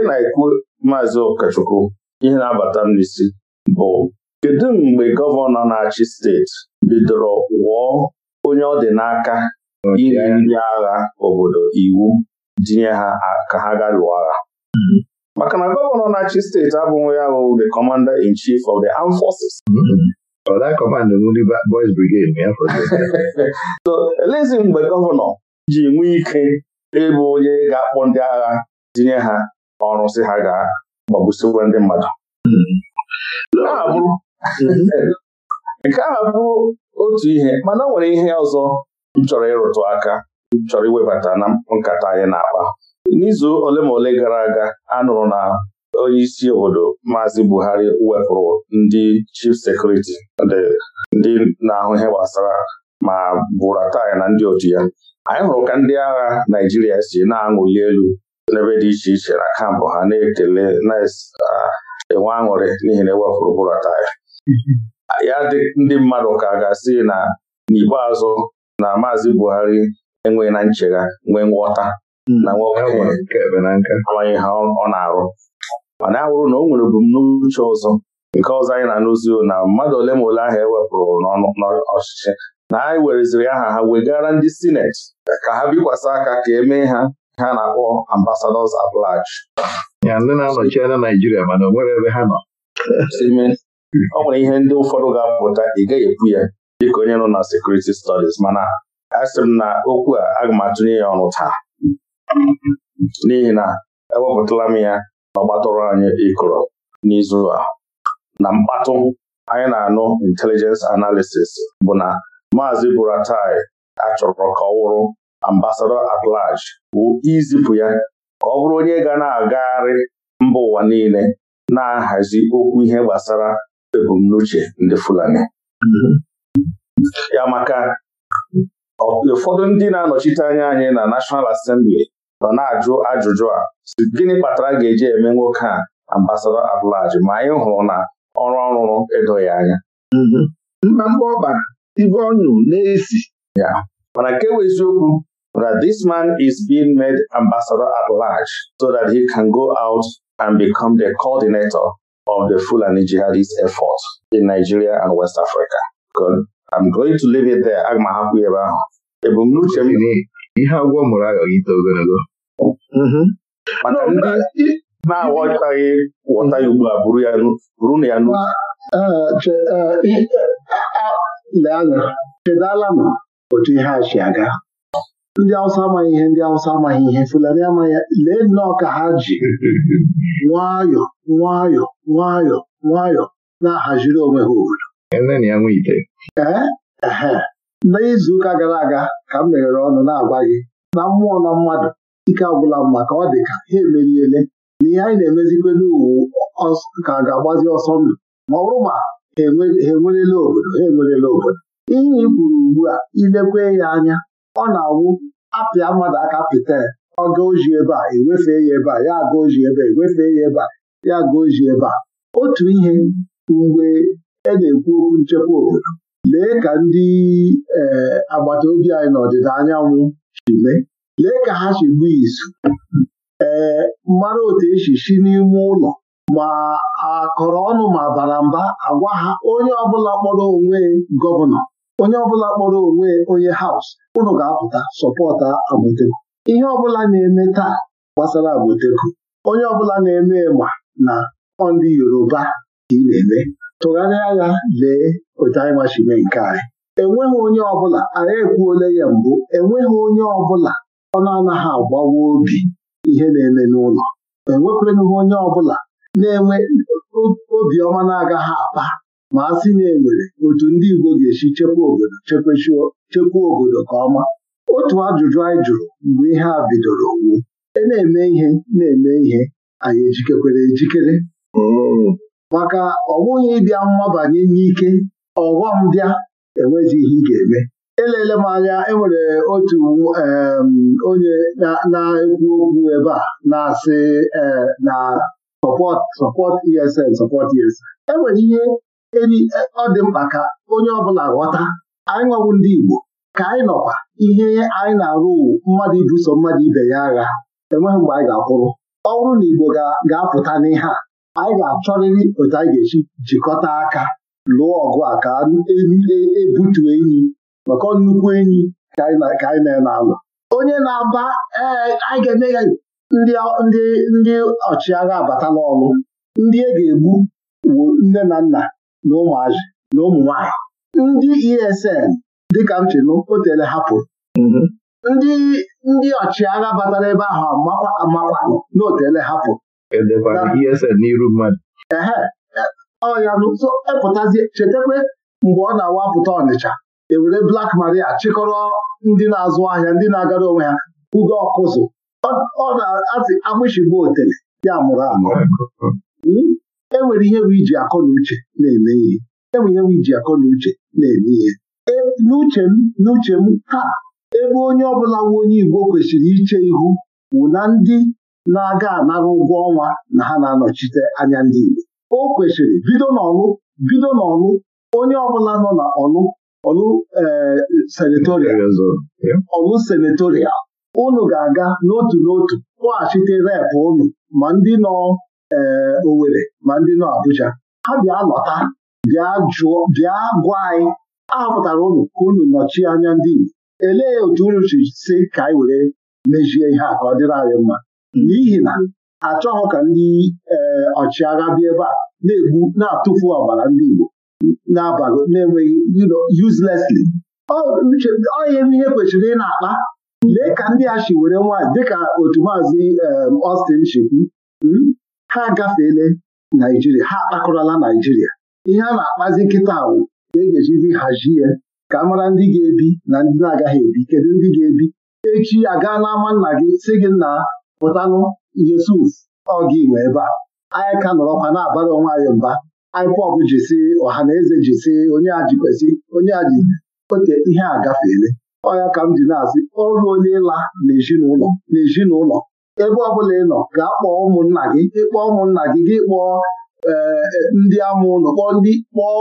Speaker 1: ka na-ekwu maazị Okachukwu ihe na-abata m n'isi bụ kedu mgbe gọvanọ na-achị steeti bidoro wụọ onye ọ dị n'aka inye ndị agha obodo iwu dinye ha ka ha ga lụọ agha hmm. maka na gọvanọ na-achị steeti abụghị ya bụ the commander in chief of the armed forces. Hmm. so elezi mgbe gọvanọ ji nwee ike ịbụ onye ga-akpọ ndị agha dinye ha ọrụ si ha gaa gbagbusiwe ndị mmadụ nke a bụrụ otu ihe mana nwere ihe ọzọ m chọrọ ịrụtụ aka chọrọ iwebata na nkata anyị na-akpa n'izu ole ma ole gara aga a nụrụ na onye isi obodo Maazị Buhari wepụrụ ndị chief sekuriti ndị na-ahụ ihe gbasara ma Buratai na ndị otu ya anyị hụrụ ka ndị agha Naijiria si na-aṅụli elu n'ebe dị iche iche na kampụ ha na-ekele na-enwe ah, aṅụrị n'ihi na ewepụrụ bụrụ taya mm-hmm. ya dị ndị mmadụ ka ga-asị na n'ikpeazụ na Maazị Buhari enweghị na nchegha nwee nghọta na mm. nwoke amaghị ha ọ na-arụ mana ya bụrụ na o nwere ebumnuche ọzọ nke ọzọ anyị na-anụzi na mmadụ ole ma ole ahụ ewepụrụ n'ọchịchị na anyị e wereziri aha ha wegara ndị sineti ka ha bikwasị aka ka emee ha ha na-akpọ ambasadọs at large ya ndị na-anọchi anya Naijiria mana onwere ebe ha nọ ọ nwere ihe ndị ụfọdụ ga-apụta ị gaghị ekwu ya dịka onye nọ na sekuriti stọdis mana asị m na okwu a aga m atụnye ya ọnụ taa n'ihi na ewepụtala m ya na ọgbatọrọ anyị ịkụrọ n'izu a na mkpatụ anyị na-anụ intelijens analisis bụ na maazị Buratai achọrọ ka ọ wụrụ Ambasador at bụ izipụ ya ka ọ bụrụ onye ga na-agagharị mba ụwa niile na-ahazi okwu ihe gbasara ebumnuche ndị Fulani ya maka ụfọdụ ndị na-anọchite anya anyị na National Assembly nọ na-ajụ ajụjụ a gịnị kpatara ga-eji eme nwoke a ambasadọ at ma anyị hụrụ na ọrụ ọrụrụ edoghị anya mma mgba ọ ibe na-esi mana nke bụ eziokwu that this man is being made ambassador at large so that he can go out and become the coordinator of the Fulani jihadist effort in Nigeria and West Africa. Good. I'm going to leave it there. Aga m ahapụ ebe ahụ. Ebumnuche m ihe agwọ mụrụ aghọghị ite ogologo. Mm-hmm. Maka ndị na-aghọtaghị ghọta ya ugbu a buru na ya n'uche. Uh, uh, Lee anya, chedala m otu ihe a si aga ndị awụsa amaghị ihe ndị awụsa amaghị ihe fulani amaghị lee nnọọ ka ha ji nwayọọ nwayọọ nwayọọ nwayọọ na-ahaziri onwe ha obodo ee ehe n'izu ụka gara aga ka m meghere ọnụ na-agwa gị na mmụọ na mmadụ ike agwụla mma ka ọ dị ka ha emeriele na ihe anyị na-emezikwe n'uwu ka ga-agbazi ọsọ ndụ ma ọ bụrụ ma ha enwerela obodo ha enwerela obodo ihe ị kwuru ugbu a ilekwe ya anya ọ na-awụ apịa mmadụ aka pịta ọga ebe a ewefee ya ebe a ya aga ebe a ewefee ya ebe a ya aga oji ebe a otu ihe mgbe e na-ekwu okwu nchekwa obodo lee ka ndị eh, agbata obi anyị n'ọdịda anyanwụ si mee lee ka ha si gbuo izu ee eh, mara otu esi si n'ime ụlọ ma a akọrọ ọnụ ma bara mba agwa ha onye ọbụla kpọrọ onwe gọvanọ onye ọbụla kpọrọ onwe onye haus ụnụ ga-apụta sọpọta Agboteku ihe ọbụla na-eme taa gbasara Agboteku onye ọbụla na-eme ma na ndị Yoruba ka ị na-eme tụgharịa ya lee otu anyị machime nke anyị enweghị onye ọbụla anyị ekwuola ya mbụ enweghị onye ọbụla ọ na-anaghị agbawa obi ihe na-eme n'ụlọ enwekwenụghị onye ọbụla na-enwe obiọma na-agaghị akpa ma a sị na enwere otu ndị Igbo ga-esi chekwa obodo chekwa obodo ka ọma otu ajụjụ anyị jụrụ mgbe ihe a bidoro wu e na-eme ihe na-eme ihe anyị ejikekwere ejikere hmm. maka ọ bụghị ịbịa mmabanye n'ike ọghọm bịa enweghị ihe ị ga-eme elele m anya enwere otu onye na-ekwu okwu ebe a na-asị eh, na support sọpọt ESN sọpọt ESN enwere ihe eri ọ dị mkpa ka onye ọbụla ghọta anyị nwawu ndị Igbo ka anyị nọkwa ihe anyị na-arụ mmadụ ibuso mmadụ ibe ya agha enweghị mgbe anyị ga-akwụrụ ọ bụrụ na Igbo ga-apụta n'ihe a anyị ga-achọrịrị otu anyị ga-eji jikọta aka lụọ ọgụ a ka ebutu e, e enyi maka nnukwu enyi ka anyị na-alụ onye na-aba ee anyị ga-eme ya ndị ọchịagha abata n'ọlụ ndị e ga-egbu bụ nne na nna na ụmụazị na ụmụ nwanyị ndị ESN dịka m chịnụ otele hapụrụ mm-hmm.
Speaker 2: ndị ndị ọchịagha batara ebe ahụ
Speaker 1: amakwanụ e na otele hapụrụ ESN n'iru mmadụ. ehe e, ọya nso epụtazie chetakwa mgbe ọ na-awapụta Ọnịcha ewere Black Maria chịkọrọ ndị na-azụ ahịa ndị na-agara onwe ha ugo ọkụzụ ọ na azị agbịshigbu otele ya mụrụ amụrụ hmm? enwere ihe bụ iji akọ na uche na-eme ihe enwere ihe bụ iji akọ na uche na-eme ihe e, n'uche m n'uche m taa ebe onye ọbụla nwe onye Igbo kwesịrị iche ihu wụ na ndị na-aga anara ụgwọ ọnwa na ha na-anọchite anya ndị Igbo o kwesịrị bido n'ọnụ bido n'ọnụ onye ọbụla nọ na ọnụ ọnụ e, senatorial ọnụ senatorial unu ga-aga n'otu n'otu kpọghachite rep unu ma ndị nọ ee eh, Owerri ma ndị nọ Abuja ha bịa lọta bịa jụọ bịa gwa anyị ahọpụtara unu ka unu nọchie anya ndị Igbo elee otu unu si ka anyị were mejie ihe a ka ọ dịrị anyị mma n'ihi na achọghị ka ndị eh, ọchịagha bịa ebe a na-egbu na-atụfu ọbara ndị Igbo na-abago na-enweghị uselessly onye ihe kwesịrị ị na-akpa lee ka ndị a chi were nwaanyị dịka otu maazị eh, Austin chikwu hmm? ha agafeela naijiria ha akpakọrọla naijiria ihe a na-akpazi nkịta awụ e ga ejizi hazie ya ka a mara ndị ga-ebi na ndị na-agaghị ebi kedu ndị ga-ebi echi gaa n'ama nna gị si gị nna pụtanụ Yusuf ọ gị nwe ebe a anyị ka nọrọkwa na-abara onwe anyị mba IPOB jisi ọha na eze jisi onye a jikwesị onye a ji ote ihe a gafeele ọya ka m ji na-asị ọrụ onye ịla na ezinụlọ ebe ọbụla ị nọ gaa kpọọ ụmụnna gị ịkpọọ ụmụnna gị gị kpọọ eh, eh, ndị amụ ụlọ kpọọ ndị kpọọ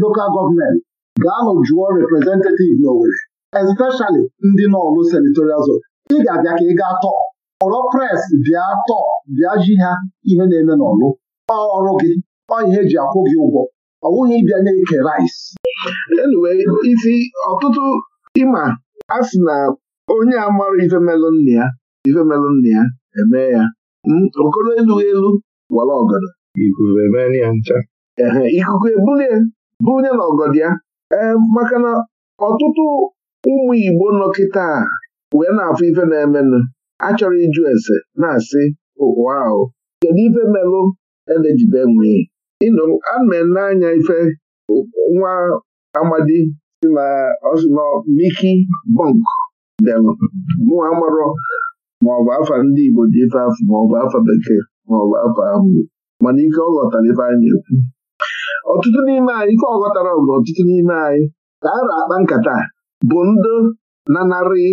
Speaker 1: lokal gọọmenti gaanụ jụọ reprezentativ n'Owere, especially ndị n'ọlụ senatorial zone ị ga-abịa ka ị gaa tọọ ọrọ pres bịa tọọ bịa ji ha ihe na-eme n'ọlụ ọrụ gị ọ ihe eji akwụ gị ụgwọ ọ bụghị ịbịa na-eke rice anyway isi ọtụtụ ịma a si na onye amara ife nna ya ife melụ nna ya eme ya hmm, okoro elughị elu wala ọgọdọ ikuku ebulie bulie na ọgọdọ ya ee maka na ọtụtụ ụmụ Igbo nọ kịta wee na-afụ ife na-emenụ achọrọ ịjụ ese na-asị ụwa oh, ahụ kedu ife melụ elejibe nwee ịnụ ana n'anya ife nwa amadi si na ọsụ Miki Bọnk bịalụ nwa marọ maọbụ afa ndị Igbo ji ife afụ maọbụ afa bekee maọbụ afa ahụ mana ike ọ ghọtara ife anyị na-ekwu ọtụtụ n'ime anyị ike ọ ghọtara bụ ọtụtụ n'ime anyị ka a akpa nkata bụ na nanarị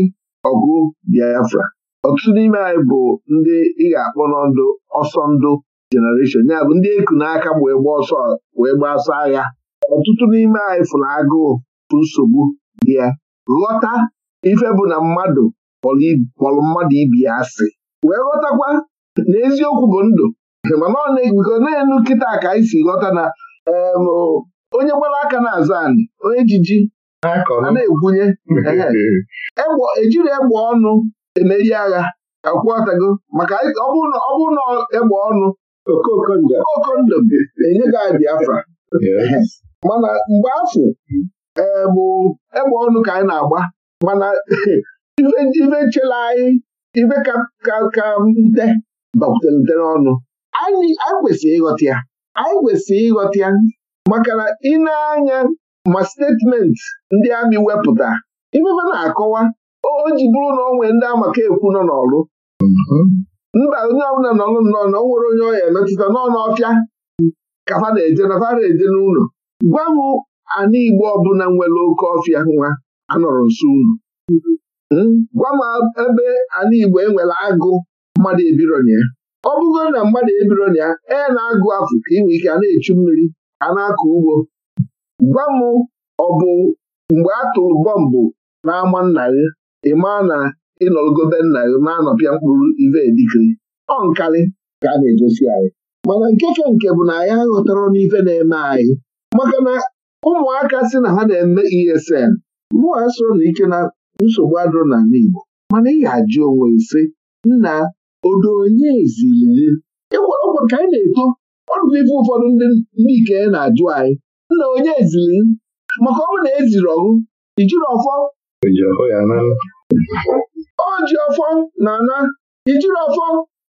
Speaker 1: ọgụ Biafra ọtụtụ n'ime anyị bụ ndị ị ga-akpọ n'ndụ ọsọ ndụ jenereshọn ya bụ ndị eku n'aka wee gba ọsọ wee gbasa agha ọtụtụ n'ime anyị fụrụ agụụ bụ nsogbu dị ya ghọta ife bụ na mmadụ kpọrọ mmadụ ibi ya asị wee ghọtakwa na eziokwu bụ ndụ mana ọ na-egugo na-enu kịta ka anyị si ghọta na onye gbara aka na-azụ anyị onye jiji na-egwunye ejiri egbe ọnụ emeri agha akwụọtago maka ọ bụrụ na egbe ọnụ okondo enye gị anyị Biafra mana mgbe afọ ee bụ egbe ọnụ ka anyị na-agba mana ibe chela anyị ibe ka ka nte bakwutere n'ọnụ anyị kwesịrị ịghọta ya anyị kwesịrị ịghọta ya maka na ị na-anya ma statement ndị amị wepụta ifefe na-akọwa o ji bụrụ na ọ ndị amaka ekwu nọ n'ọlụ. mba onye ọbụla nọ nnọọ na ọ nwere onye ọya emetụta nọ n'ọfịa ka fa na-eje na fa na-eje n'ụlọ gwa m ana Igbo ọbụla nwere oke ọfịa nwa anọrọ nso ụlọ Hmm? gwa m ebe ala Igbo enwere agụ mmadụ ebironye ọ bụgoro na mmadụ ebironya e na-agụ afụ ka inwe ike a na-echu mmiri a na-akọ ugbo gwa m ọ bụ mgbe a tụrụ bọmbụ n'ama nna gị ị maa na ịnọgobe nna gị na-anọpịa mkpụrụ ive dikiri ọ nkarị ka a na-egosi anyị mana nkeke nke bụ na anyị aghọtara n'ife na-eme anyị maka na ụmụaka si na ha na-eme ESN mụa soro na ike na nsogbu adịrọ n'ala Igbo mana ị ga-ajụ onwe ise nna odo onye ziri ịgwarọgwụ ka anyị na-eto ọdụbụ ife ụfọdụ ndị ike na-ajụ anyị nna onye ezili maka ọ na eziri ọgụ ijiri ọfọ o ji ọfọ na ana ijiri ọfọ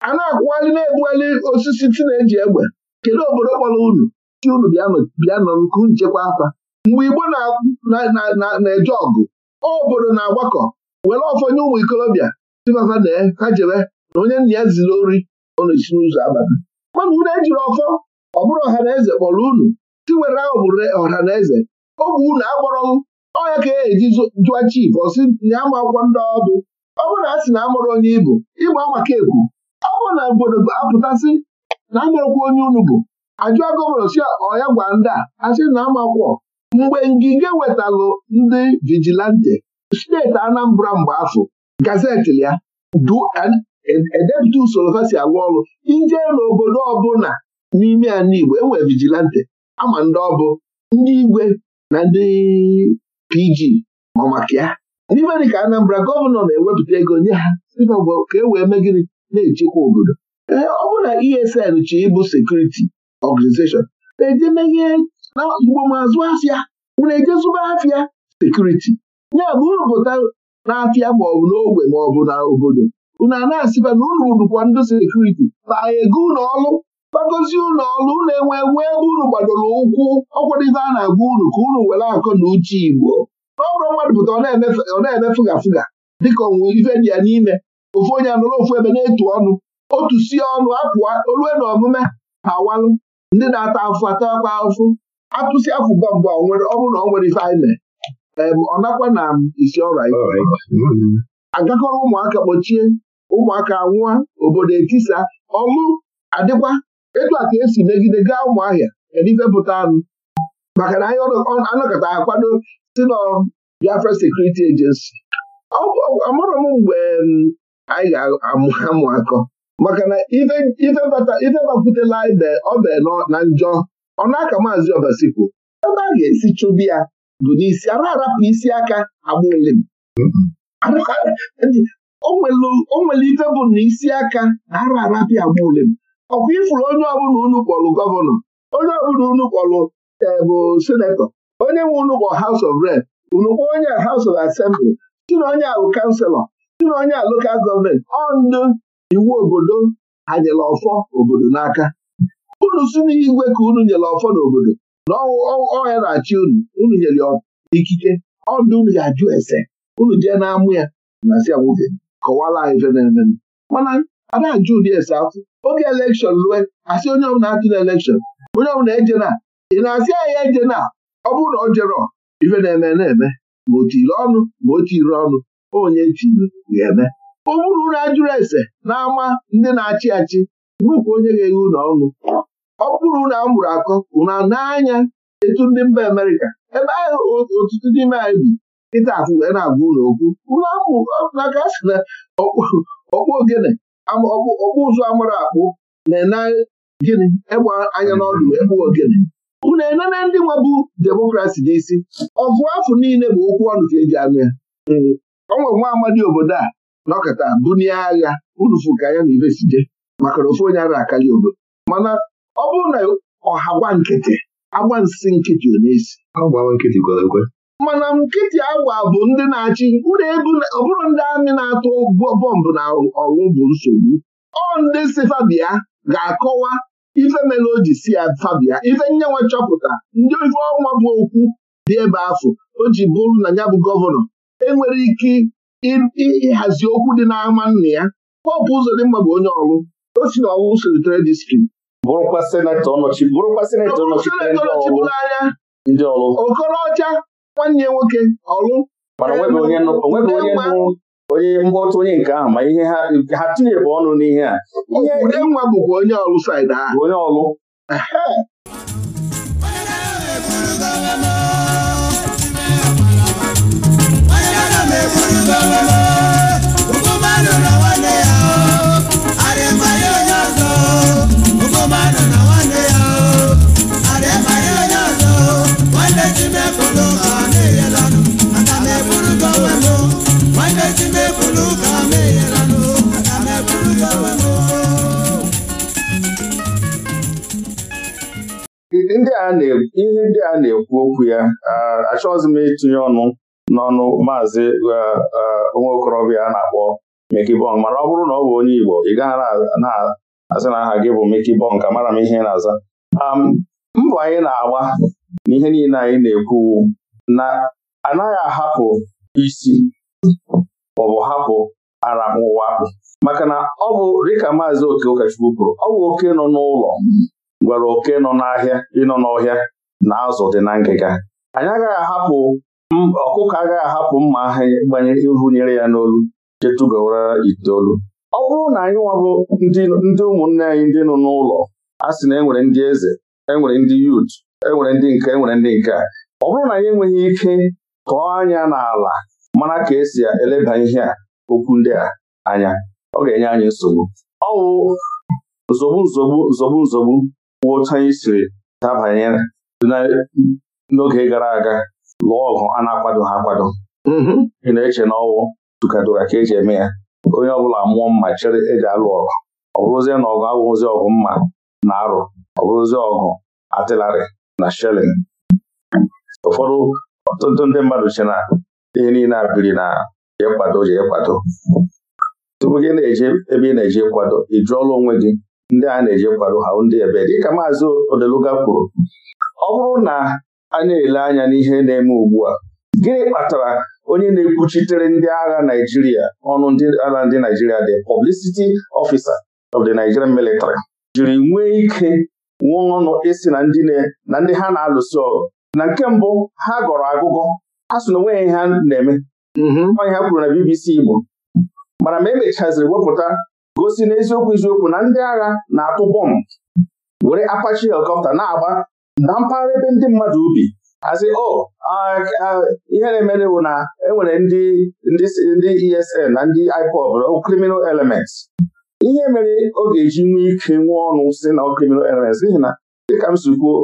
Speaker 1: a na-akwụghalị na-egbughalị osisi ti e egbe kedu obodo kpọrọ unu chi unu bịa nọ nke nchekwa afa mgbe Igbo na-eje ọgụ obodo na-agbakọ were ọfọnye ụmụ ikolobịa tibaza na ha jebe na onye nna ya ziri ori na-esi n'ụzọ abata mana unu ejiri ọfọ ọ bụrụ ọha na eze kpọrọ unu si were obodo ọha na eze ogbe unu agbọrọ ọnya ka e eji jụa chif ọsị ya ma akwụkwọ ndị ọdụ ọ bụrụ na a sị na amụrụ onye ibu ịgba maka ekwu ọ bụrụ na obodo apụtasị na amụrụkwa onye unu bụ ajụọ gọvanọ si ọya gwa ndị a asị na amakwọ mgbe ngige wetalụ ndị vigilante steeti Anambra mgbe afọ gazeti ya edepụta e, usoro ha si alụ ọrụ ije n'obodo ọbụla n'ime ala Igbo enwe vigilante ama ndị ọbụ ndị igwe na ndị PG ma maka ya n'ime Anambra gọvanọ na-ewepụta ego nye ha ka e wee mee na-echekwa obodo ee ọ bụla na ESN chi ịbụ sekuriti ọganizeshọn na-eje na mgbamazụ afịa unu ejezuba afịa sekuriti ya bụ unu pụta n'afịa maọbụ n'ogbe maọbụ na obodo unu a na-asịba na ụlọ ụdụkwa ndị sekuriti na ego ụlọ ọrụ gbagozie ụlọ ọlụ unu enwe nwee ebe unu gbadoro ụkwụ ọkwadịbe a na-agwa unu ka unu were akọ na uche Igbo n'ọrụ mmadụ pụta ọ na-eme fụga fụga dịka onwe ife dị ya n'ime ofu onye anụrụ ofu ebe na-etu ọnụ otu si ọnụ apụọ olue na omume ha walụ ndị na-ata afụ atakwa afụ atụsị afụba mbụ ọ bụrụ na ọ nwere ife anyị mee ọ nakwa na isi ọrụ anyị agakọrọ ụmụaka kpọchie ụmụaka nwụọ obodo etisa ọlụ adịkwa etu a esi megide gaa ụmụahịa edifepụta anụ maka na anyị anọkọta akwado si na Biafra sekuriti ejensi. amarọ m mgbe anyị ga-amụ akọ maka na ife bakwutela ibe ọ bụ na njọ ọ na-aka maazị kwuo ebe a ga-esi chụbi ya bụ n'isi a arapụ isi aka agbụlim o nwere ife bụ na isi aka na ara arapịa agbụlim ọkwa ifuru onye ọbụla unu kpọlụ gọvanọ onye ọbụla unu kpọlụ e, bụ senetọ onye nwe unu kpọ House of Rep unu onye a House of Assembly si na onye ahụ kanselọ si na onye a lokal gọọmenti ọ iwu obodo ha ọfọ obodo n'aka unu si igwe ka unu nyere ọfọ n'obodo na ọhịa na-achị unu unu nyere ikike ọdụ unu ga-ajụ ese unu jee na-amụ ya na si ya nwoke kọwara anyị ife na-eme mana a ajụ ụdị ese afọ oge elekshọn lue asị onye ọbụla atụ na elekshọn onye ọbụla eje na ị na-asị anyị eje na ọ bụrụ na ọ jere ife na-eme na-eme ma o ọnụ ma o tiri ọnụ onye tiri ga-eme ọ bụrụ unu ajụrụ ese na ndị na-achị achị bụkwa onye ga-eghe unu ọnụ ọ bụrụ na a mụrụ akọ na n'anya etu ndị mba Amerika ebe ahụ ọtụtụ n'ime anyị bi nkịta afụe na-agwa ụlọ okwu maka a na ọkpụ ogene ọkpụ ụzọ amara akpụ na-ene gịnị ịgba anya n'ọdụ ekpu ogene unu enene ndị nwebụ demokrasi n'isi ọfụ afọ niile bụ okwu ọnụ ka eji anụ ya hmm. o nwa amadi obodo a nọkọta bunie agha unu fụ ka ya na ibesije maka na ofu onye ara akali obodo mana ọ bụrụ na ọha gwa nkịtị agba nsị nkịtị ọ mana nkịtị agwa bụ ndị na-achị ọ bụrụ ndị amị na-atụ bọmbụ na ọrụ bụ nsogbu ọ ndị si fabia ga-akọwa ife mere o ji si ya fabia ife nyenwe chọpụta ndị ife ọnwa bụ okwu dị ebe afọ o ji bụrụ na ya bụ gọvanọ enwere ike ịhazi okwu dị n'ama nna ya ụzọ dị bụ onye ọrụ o si na ọrụ selitere distrikti bụrụkwa senetọ ọnọchi bụrụkwa senetọ ọnọchitere ndị ọrụ Okorocha nwanne nwoke ọrụ mana onweghị onye nụ onye mgbọtụ onye nke ahụ ma ihe ha tinyebụ ọnụ n'ihe a nwa bụkwa onye ọrụ said ahụ onye ọrụ ihe ndị a na-ekwu okwu ya achọghịzị m ịtụnye ọnụ n'ọnụ maazị nwa okorobịa na-akpọ Mekibọn mara ọ bụrụ na ọ bụ onye Igbo ị gaghị na azị na aha gị bụ Mekibọn ka mara m ihe na-aza mbọ anyị na-agba na ihe niile anyị na-ekwu na anaghị ahapụ isi bụ hapụ ara ụwa akpụ maka na ọ bụ dịka maazị oke ụkọchukwu kwuru ọ bụ oke nọ n'ụlọ gwara oke nọ n'ahịa ịnọ n'ọhịa na azụ dị na ngịga anyị agaghị ahapụ ọkụkọ agaghị ahapụ mma ahụ gbanye ịhụnyere ya n'olu chetugowara itoolu ọ bụrụ na anyị nwabụ ndị ụmụnne anyị ndị nọ n'ụlọ a sị na enwere ndị eze enwere ndị yut enwere ndị nke enwere ndị nke a ọ bụrụ na anyị enweghị ike tụọ anya n'ala mara ka esi eleba ihe a okwu ndị a anya ọ ga-enye anyị nsogbu ọwụ nzogbu nzogbu nzogbu nzogbu kwụ anyị siri dabanye n'oge gara aga lụọ ọgụ a na-akwado ha akwado mm-hmm. ị na-eche na ọwụ tụkadoka ka eji eme ya onye ọbụla mụọ mma chere eji alụ ọgụ ọ bụrụzie na ọgụ awụzi ọgụ mma na arụ ọ bụrụzie ọgụ atịlarị na shelin ụfọdụ ọtụtụ ndị mmadụ che na ihe niile a biri na ịkwado kwado ịkwado. tupu gị na-eje ebe ị na-eje kwado ị jụọla onwe gị ndị a na-eje kwado ha ndị ebe dịka maazị Odeluga kwuru ọ bụrụ na a na-ele anya n'ihe na-eme ugbu a gịnị kpatara onye na-ekwuchitere ndị agha Naijiria ọnụ ndị agha ndị Naijiria dị publicity officer of the Nigerian military jiri nwee ike nwee ọnụ isi na ndị ha na-alụso ọgụ na nke mbụ ha gọrọ agụgọ ha so na onwe ya ha na-eme onye mhm. ha kwuru na BBC Igbo mana ma emechaziri wepụta gosi n'eziokwu eziokwu na ndị agha na-atụ bọmbụ were akpachi helikọpta na-agba na mpaghara ebe ndị mmadụ ubi azi o oh, ah, ah, ihe na-emere na enwere ndị ndị ESN na ndị IPOB oh, criminal elements ihe mere ọ ga-eji nwee ike nwee ọnụ si na criminal elements n'ihi na dịka m si kwuo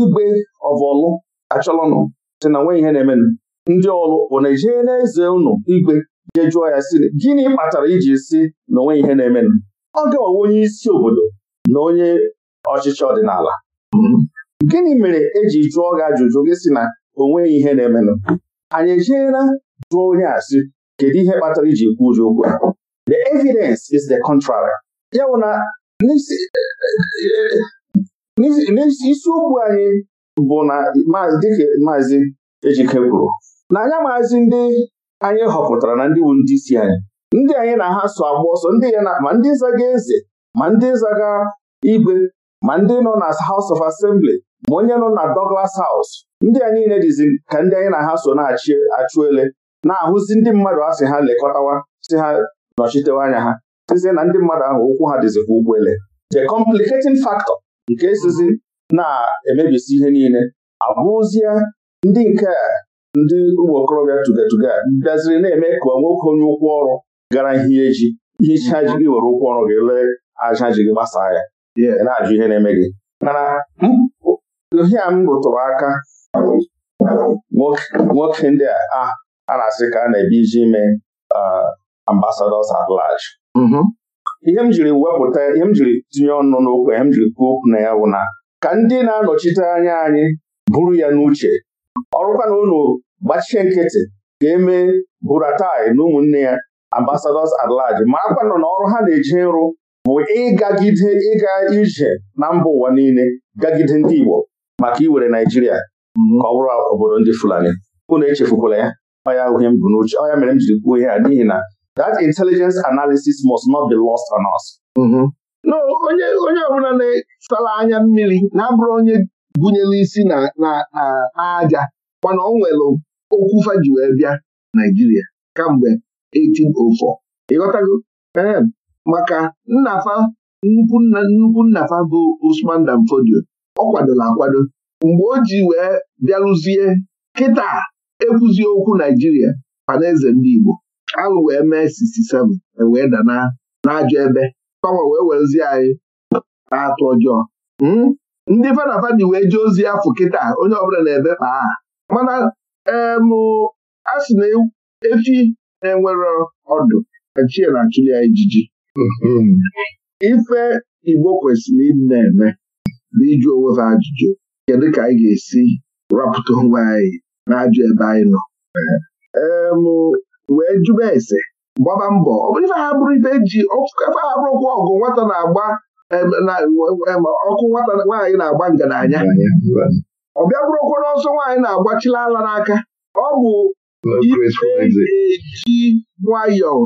Speaker 1: igbe ọvọlụ achọlọnụ sị na nwe ihe na-emenụ ndị ọrụ bụ na ijee n'eze ụnụ igwe jee jụọ ya si gịnị kpatara iji si na onwe ihe na-emenụ ọ ga onye isi obodo na onye ọchịchị ọdịnala gịnị mere eji jụọ gị ajụjụ gị si na onweghị ihe na-emenụ anyị ejeela jụọ onye a kedu ihe kpatara iji kwu ụjọ okwu the evidence is the contrary ya bụ na n'isiokwu anyị bụ na dịka maazị Ejike kwuru na anya maazị ndị anyị họpụtara na ndị wu ndị isi anyị ndị anyị na ha so agba ọsọ ndị ya ma ndị zaga eze ma ndị zaga igwe ma ndị nọ na House of Assembly ma onye nọ na Douglas House ndị anyị niile dịzi ka ndị anyị na ha so na-achị achụ ele na-ahụzi ndị mmadụ asị ha lekọtawa si ha nọchitewa anya ha sizie na ndị mmadụ ahụ ụkwụ ha dịzi ụgbọ ele. the complicating factor nke sizi na-emebisi ihe niile abụzie ndị nke ndị ụmụ okorobịa tugatuga bịaziri na-eme ka nwoke onye ụkwụ ọrụ gara hie ji hicha ji gị were ụkwụ ọrụ gị lee aja ji gị gbasaa ya na-ajụ ihe na-eme gị mana ihe a m rụtụrụ aka nwoke ndị a a na-asị ka a na-ebi iji ime ambasadọs at mm-hmm. ihe m jiri wepụta ihe m jiri tinye ọnụ n'okwu ihe m jiri kwuo okwu na ya wụ na ka ndị na-anọchite anya anyị buru ya n'uche ọrụkwa unu gbachie nkịtị ka eme buratai na ụmụnne ya ambasadọs at ma akwa na ọrụ ha na-eji nrụ bụ ịgagide ịga ije na mba ụwa niile gagide ndị Igbo maka iwere Naijiria ka ọ bụrụ obodo ndị Fulani unu echefukwala ya ọya uhie m bụ n'uche ọya mere m jiri kwuo ihe a n'ihi na that intelligence analysis must not be lost on us mm-hmm. no onye onye ọbụla na-esala anya mmiri na-abụrụ onye gụnyere isi na mana ọ nwere okwu faji wee bịa Naijiria kamgbe 1804 ịghọtago ee maka nnafa nnukwu nnafa bụ Usman Dan ọ kwadola akwado mgbe o ji wee bịarụzie kịta ekwuzi okwu Naijiria Panaeze ndị Igbo alụ wee mee 67 e wee dana n'ajọ ebe nwa wee werezie anyị atụ ọjọọ hmm? ndị fada wee jee ozi afọ kịta onye ọbụla na-ebe ma a mana a na efi na-enwere ọdụ achie na achụ ya ijiji hmm. ife Igbo kwesịrị ịdị na-eme bụ ịjụ onwe ha ajụjụ kedu ka anyị ga-esi rapụta onwe anyị na ajụ ebe anyị nọ wee jụba ese gbaba mbọ ọ ife ha bụrụ ife ji efe ha bụrụ okwu ọgụ nwata na-agba ọkụ nwata nwaanyị na-agba ngananya ọ bịa bụrụkwa n'ọsọ nwaanyị na-agbachila ala n'aka ọ bụ ji nwayọọ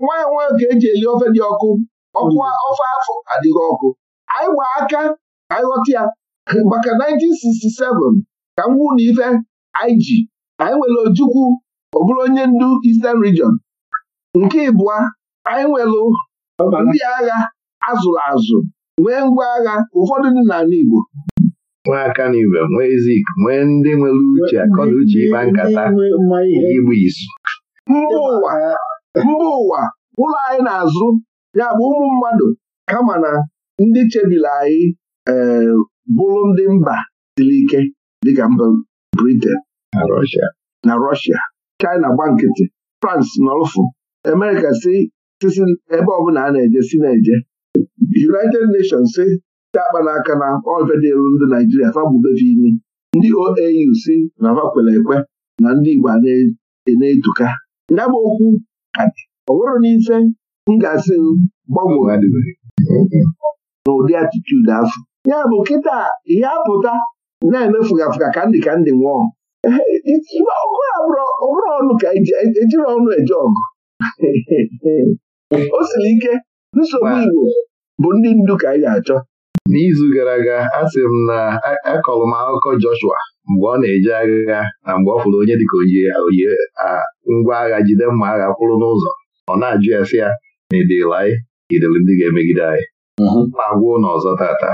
Speaker 1: nwanyị nwanyị ka eji eli ofe dị ọkụ ọkụ ofe afọ adịghị ọkụ anyị gba aka anyị ghọta ya maka 1967 ka m na ife anyị ji anyị nwere Ojukwu ọ bụrụ onye ndu Eastern Region nke ịbụa anyị nwelụ ndị agha azụrụ azụ nwee ngwa agha ụfọdụ dị n'ala Igbo nwee aka n'ibe nwee zik nwee ndị nwere uche akọna uche ịkpa nkata igbu izu mba ụwa ụlọ anyị na-azụ ya bụ ụmụ mmadụ kama na ndị chebiri anyị eh, bụrụ ndị mba siri ike dịka mba Britain na Russia China gba nkịtị France nọlụfụ Emeka si ebe ọbụla a na-eje si na-eje United Nations si te akpa n'aka na ọvedelu ndị Naijiria fagbubefe imi ndị OAU si na fa ekwe na ndị Igbo e na-etuka ya bụ okwu ọ nwere n'ife m ga-asị gbanwee n'ụdị atitude afọ ya bụ kịta ihe apụta na-emefuga afụga ka ndị ka ndị nwụọ ọgụ abụrụ ọnụ ka ejiri e, e ọnụ eje ọgụ o siri ike nsogbu Igbo bụ ndị ndu ka anyị ga-achọ n'izu gara aga a sị m na akọrọ m akụkọ Joshua mgbe ọ na-eje agha na mgbe ọ fụrụ onye dịka oyi oyi ngwa agha jide mma agha kwụrụ n'ụzọ ọ na-ajụ ya sị ya na edela anyị idere ndị ga-emegide anyị mhm. ma gwụ ụlọ ọzọ tata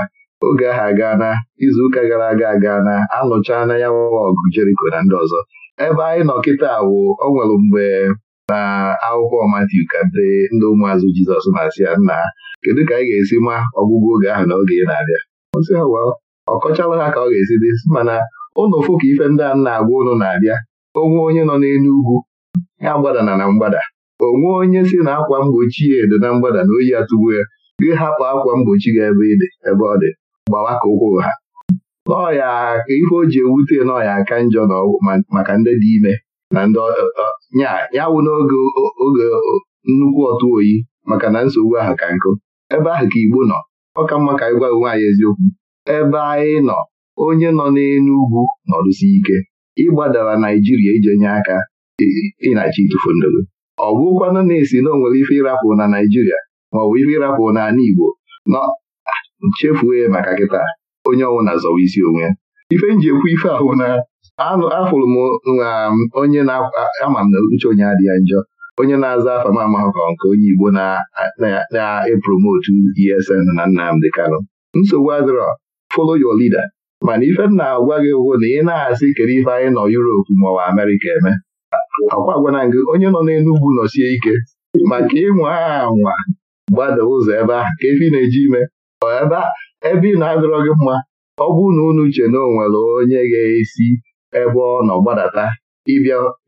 Speaker 1: oge ahụ izu izuụka gara aga na anụcha na ya nwa ọgụ Jeriko na ndị ọzọ ebe anyị nọ kịta wụ o nwere mgbe na akwụkwọ Matiu ka ndị ndị ụmụazụ Jizọs na-asị ya nna ha kedu ka anyị ga-esi ma ọgwụgwọ oge ahụ na oge ị na-abịa osi ha ọ kọchala ha ka ọ ga-esi dị mana ụlọ fụ ka ife ndị a na-agwa ụnụ na-abịa onwe onye nọ n'elu ugwu ya gbadana na mgbada onwe onye si na akwa mgbochi ya edo na mgbada na oyi atụgbu ya gị hapụ akwa mgbochi gị ebe ịdị ebe ọ dị gbawa ka ụkwụ ha n'ọya ka ife o ji ewute n'ọya aka njọ maka ndị dị ime na ndị ya wụ n'oge oge nnukwu ọtụ oyi maka na nsogbu ahụ ka nkụ ebe ahụ ka Igbo nọ ọ ka mma ka anyị gwa nwaanyị eziokwu ebe anyị nọ onye nọ n'elu ugwu nọrụsi ike ịgbadara Naijiria ije nye aka ịnachi ịtụfu ọ bụkwanụ na-esi na onwere ife ịrapụ na Naijiria ma ọ bụ ife ịrapụ n'ala Igbo nọ chefuo maka kịta onye ọnwụ na-azọwa isi onwe ya ife nji ekwu ife ahụ na afụrụ m onye na-ama m na uche onye adịghị njọ onye na-aza afa m amahụkọ nke onye Igbo na-epromotu ESN na e Nnamdị Kano. nsogbu adịrọ follow your leader mana ife m na-agwa gị ụgwọ na ị na-asị ikere ife anyị nọ ma maọbụ Amerịka eme akwa gwana gị onye nọ n'Enugwu nọsie ike maka ịnwa anwa gbada ụzọ ebe ahụ ka efe ị na-eji ime ebe ị na-adịrọ gị mma ọ bụ na unu uche na o nwere onye ga-esi ebe ọ nọ gbadata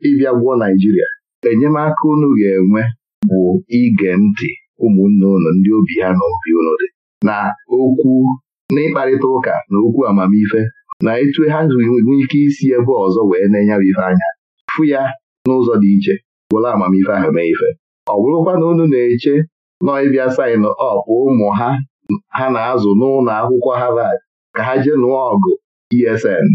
Speaker 1: ịbịa gwụọ Naijiria enyemaka unu ga-enwe bụ ige ntị ụmụnne unu ndị obi ha na obi unu dị na okwu n'ịkparịta ụka na okwu amamife na etu ha nwee ike isi ebe ọzọ wee na-enye ife anya fụ ya n'ụzọ dị iche gwụrụ amamife ahụ mee ife ọ bụrụkwa na unu na-eche nọ ịbịa sain ọpụ ụmụ ha ha na-azụ n'ụlọ akwụkwọ Harvard ka ha jee nụọ ọgụ ESN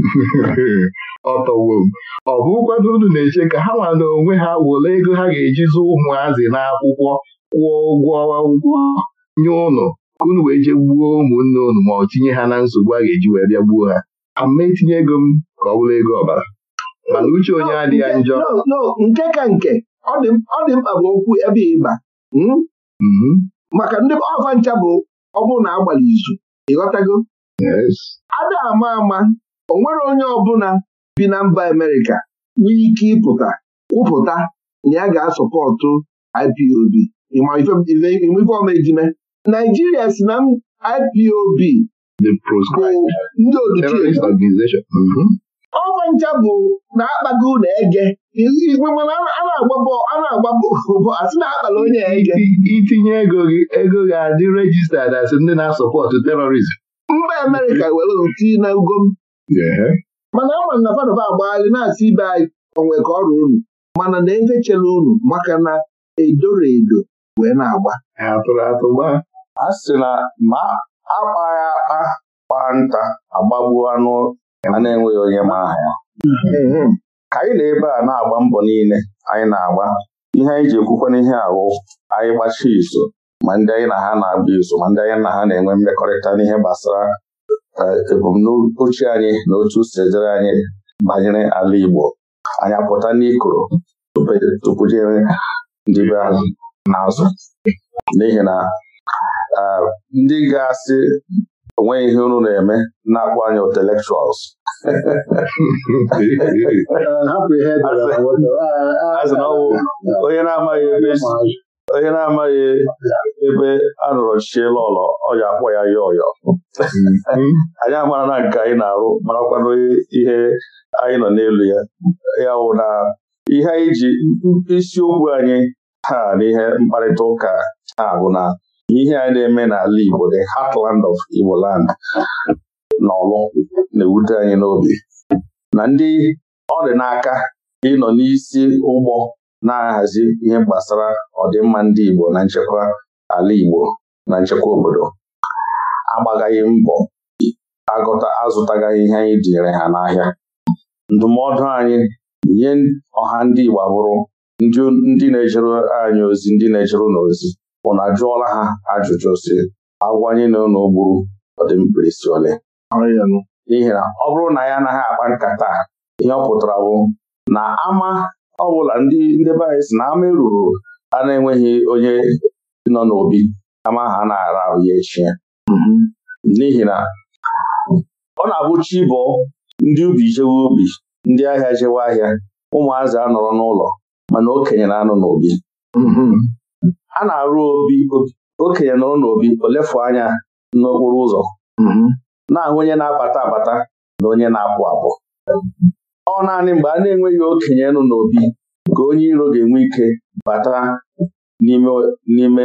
Speaker 1: ọ bụ m ọ bụkwado unu na-eche ka ha nwada onwe ha were ego ha ga-eji zụ ụmụazị n'akwụkwọ kwụọ ụgwọ ụgwọ nye ụnụ ka unu wee jee gbuo ụmụnne ụnụ ma ọ tinye ha na nsogbu a ga-eji wee bịa gbuo ha ama etinye ego m ka ọ bụrụ ego ọbara mana uche onye adịghị njọ nke ka nke ọ dị mkpa bụ okwu ebe ịba hmm? mm-hmm. maka ndị ncha bụ ọ bụrụ na agbalị izu ịghọtago ada ama ama o nwere onye ọbụla bi na mba Amerịka nwee ike ịpụta kwupụta na ya ga-asọpọtụ IPOB ife Naijiria si na IPOB bụ ndị oduchi mhm. ọba ncha bụ na-akpago na ege mana a na-agba bọọlụ asị na-akpala onye ege itinye ego gị ego ga-adị rejista dasị ndị na-asọpọtụ terọrizm mba Amerịka were ti na ugo mana ama na Fadova agbagharị na-asị ibe anyị onwe ka ọrụ unu mana na chere unu maka na edoro edo wee na-agba a sị na ma akpaghị akpa kpaa nta agbagbuo anụ a na-enweghị onye ma aha ya mm-hmm. ka anyị na ebe a na-agba mbọ niile anyị na-agba ihe anyị ji ekwukwa n'ihe ahụ anyị gbachi izu ma ndị anyị na ha na-agba iso ma ndị anyị na ha na-enwe mmekọrịta n'ihe gbasara ebumnuche anyị na otu sejere anyị banyere ala Igbo anyị apụta n'ikoro tupujere e, ndị be ahụ n'azụ n'ihi na ndị ga-asị onweghị ihe unu na-eme na-akpọ anyị intellectuals onye na-amaghị ebe a rụrọchie lọlọ ọ ya akpọ ya ya ọyọ anyị amara na nke anyị na-arụ marakwanụ ihe anyị nọ n'elu ya ya wụ na ihe anyị ji isiokwu anyị ha n'ihe mkparịta ụka ha bụ na ihe anyị na-eme n'ala Igbo the heartland of Igbo land na ọlụ na-ewute anyị n'obi na ndị ọ dị n'aka ịnọ n'isi ụgbọ na-ahazi ihe gbasara ọdịmma ndị Igbo na nchekwa ala Igbo na nchekwa obodo agbagaghị mbọ agụta azụtagaghị ihe anyị tinyere ha n'ahịa ndụmọdụ anyị nye ọha ndị Igbo bụrụ ndị na-ejere anyị ozi ndị na-ejere na ozi ụnụ ajụọla ha ajụjụ si agwanye na ụlọ gburu ọdịmkpirisi ole n'ihi na ọ bụrụ na ya anaghị akpa nkata ihe ọ pụtara bụ na ama ọ bụla ndị ndebe anyị si na ama eruru a na-enweghị onye nọ n'obi ama ha na-ara ahụ ya echi n'ihi na ọ na-abụ chi ndị ubi jewe obi ndị ahịa jewe ahịa ụmụazị anọrọ n'ụlọ mana okenye na-anọ n'obi a na-arụ obi okenye nọrọ n'obi olefu anya n'okporo ụzọ na-ahụ onye na-abata abata na onye na-apụ apụ ọ naanị mgbe a na-enweghị okenye nọ n'obi ka onye iro ga-enwe ike bata n'ime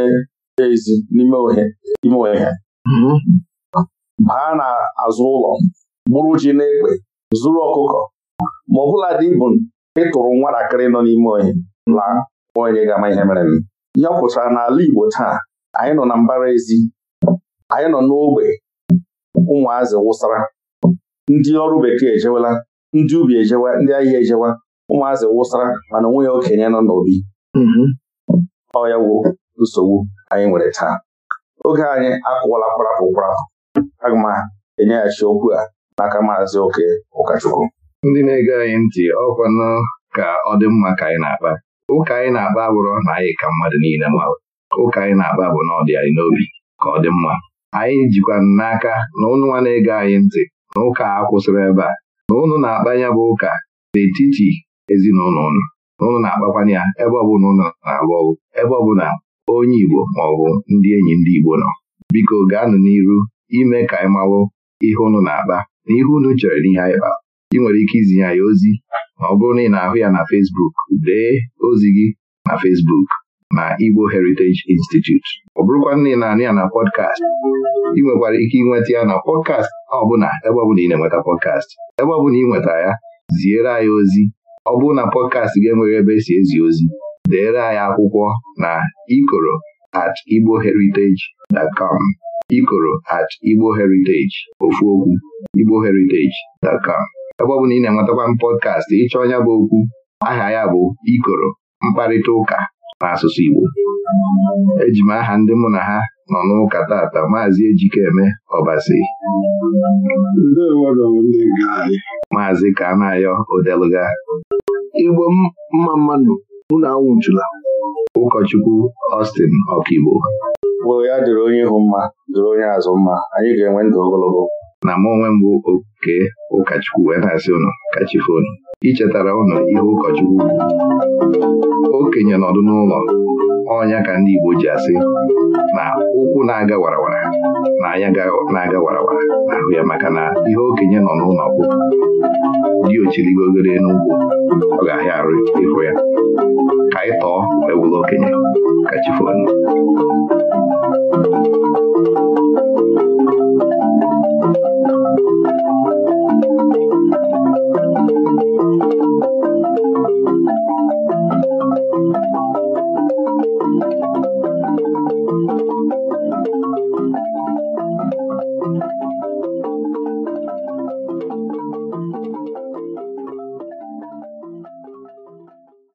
Speaker 1: ezi n'ime ime ohe mm-hmm. baa n'azụ ụlọ gburu ji na egbe zuru ọkụkọ ma ọ bụla dị bụ ịtụrụ nwatakịrị nọ n'ime ohe laa onye ga-ama ihe mere ya pụtara n'ala Igbo taa anyị nọ na mbara ezi anyị nọ n'ogbe ụmụazị wụsara ndị ọrụ bekee ejewela ndị ubi ejewa ndị ahịa ejewa ụmụazị wụsara mana onwe ya okenye nọ n'obi mm-hmm. ọ nsogbu anyị nwere taa oge anyị akụwala kwarapụ kwarapụ aga m enyeghachi okwu a n'aka maazị oke ụkọchukwu ndị na-ege anyị ntị ọkwanụ ka ọ dị mma ka anyị na-akpa ụka anyị na-akpa abụrụ na anyị ka mmadụ niile ma ụka anyị na-akpa bụ na ọ dị anyị n'obi ka ọ dị mma anyị jikwa n'aka na ụnụ na-ege anyị ntị na ụka a kwụsịrị ebe a na ụnụ na-akpanya bụ ụka n'etiti ezinụlọ ụnụ na na-akpakwanye ya ebe ọbụla ụnụ na-alụ ọgụ ebe ọbụla onye Igbo maọbụ ndị enyi ndị Igbo nọ biko gaanụ n'iru ime ka anyị mawụ ihe ụnụ na-akpa na ihe ụnụ chere n'ihe anyị kpa ị nwere ike izinye ya ozi ma ọ bụrụ na ị na-ahụ ya na Fesbuk. dee ozi gị na Fesbuk na Igbo Heritage Institute ọ bụrụkwa na ị na anị ya na pọdkast ị nwekwara ike ịnweta ya na pọdkast ọbụla ebe ọbụla ị na-enweta pọdkast ebe ọbụla ị nwetara ya ziere anyị ozi ọ bụrụ na pọdkastị ga enweghị ebe esi ezi ozi deere anyị akwụkwọ na ikoro at igboheritage.com ikoro at igboheritage ofu okwu igboheritage.com ebe ọ bụ na ị na-enwetakwa m pọdkastị ịchọ ọnya bụ okwu aha ya bụ ikoro mkparịta ụka Asụsụ Igbo eji m aha ndị mụ na ha nọ n'ụka tata maazị Ejikeme Ọbasi maazị ka na-ayọ Kanayo Odeluga Igbo mma mmanụ unu anwụchula ụkọchukwu Austin Ọkigbo Mgbe ya dịrị onye ịhụ mma dịrị onye azụ mma anyị ga-enwe ndụ ogologo na mụ onwe bụ oke ụkọchukwu wee na-asị ụnụ ichetara ụnụ ihe ụkọchukwu okenye nọdụ n'ụlọ ọnya ka ndị Igbo ji asị na ụkwụ na-aga warawara na anya na-aga warawara n'ahụ ya maka na ihe okenye nọ n'ụlọ bụ dị ochirigogere n'ugwu ọ ga-ahịa arụ ịhụ ya ka anyị tọọ ewula okenye ka chifonu a a a a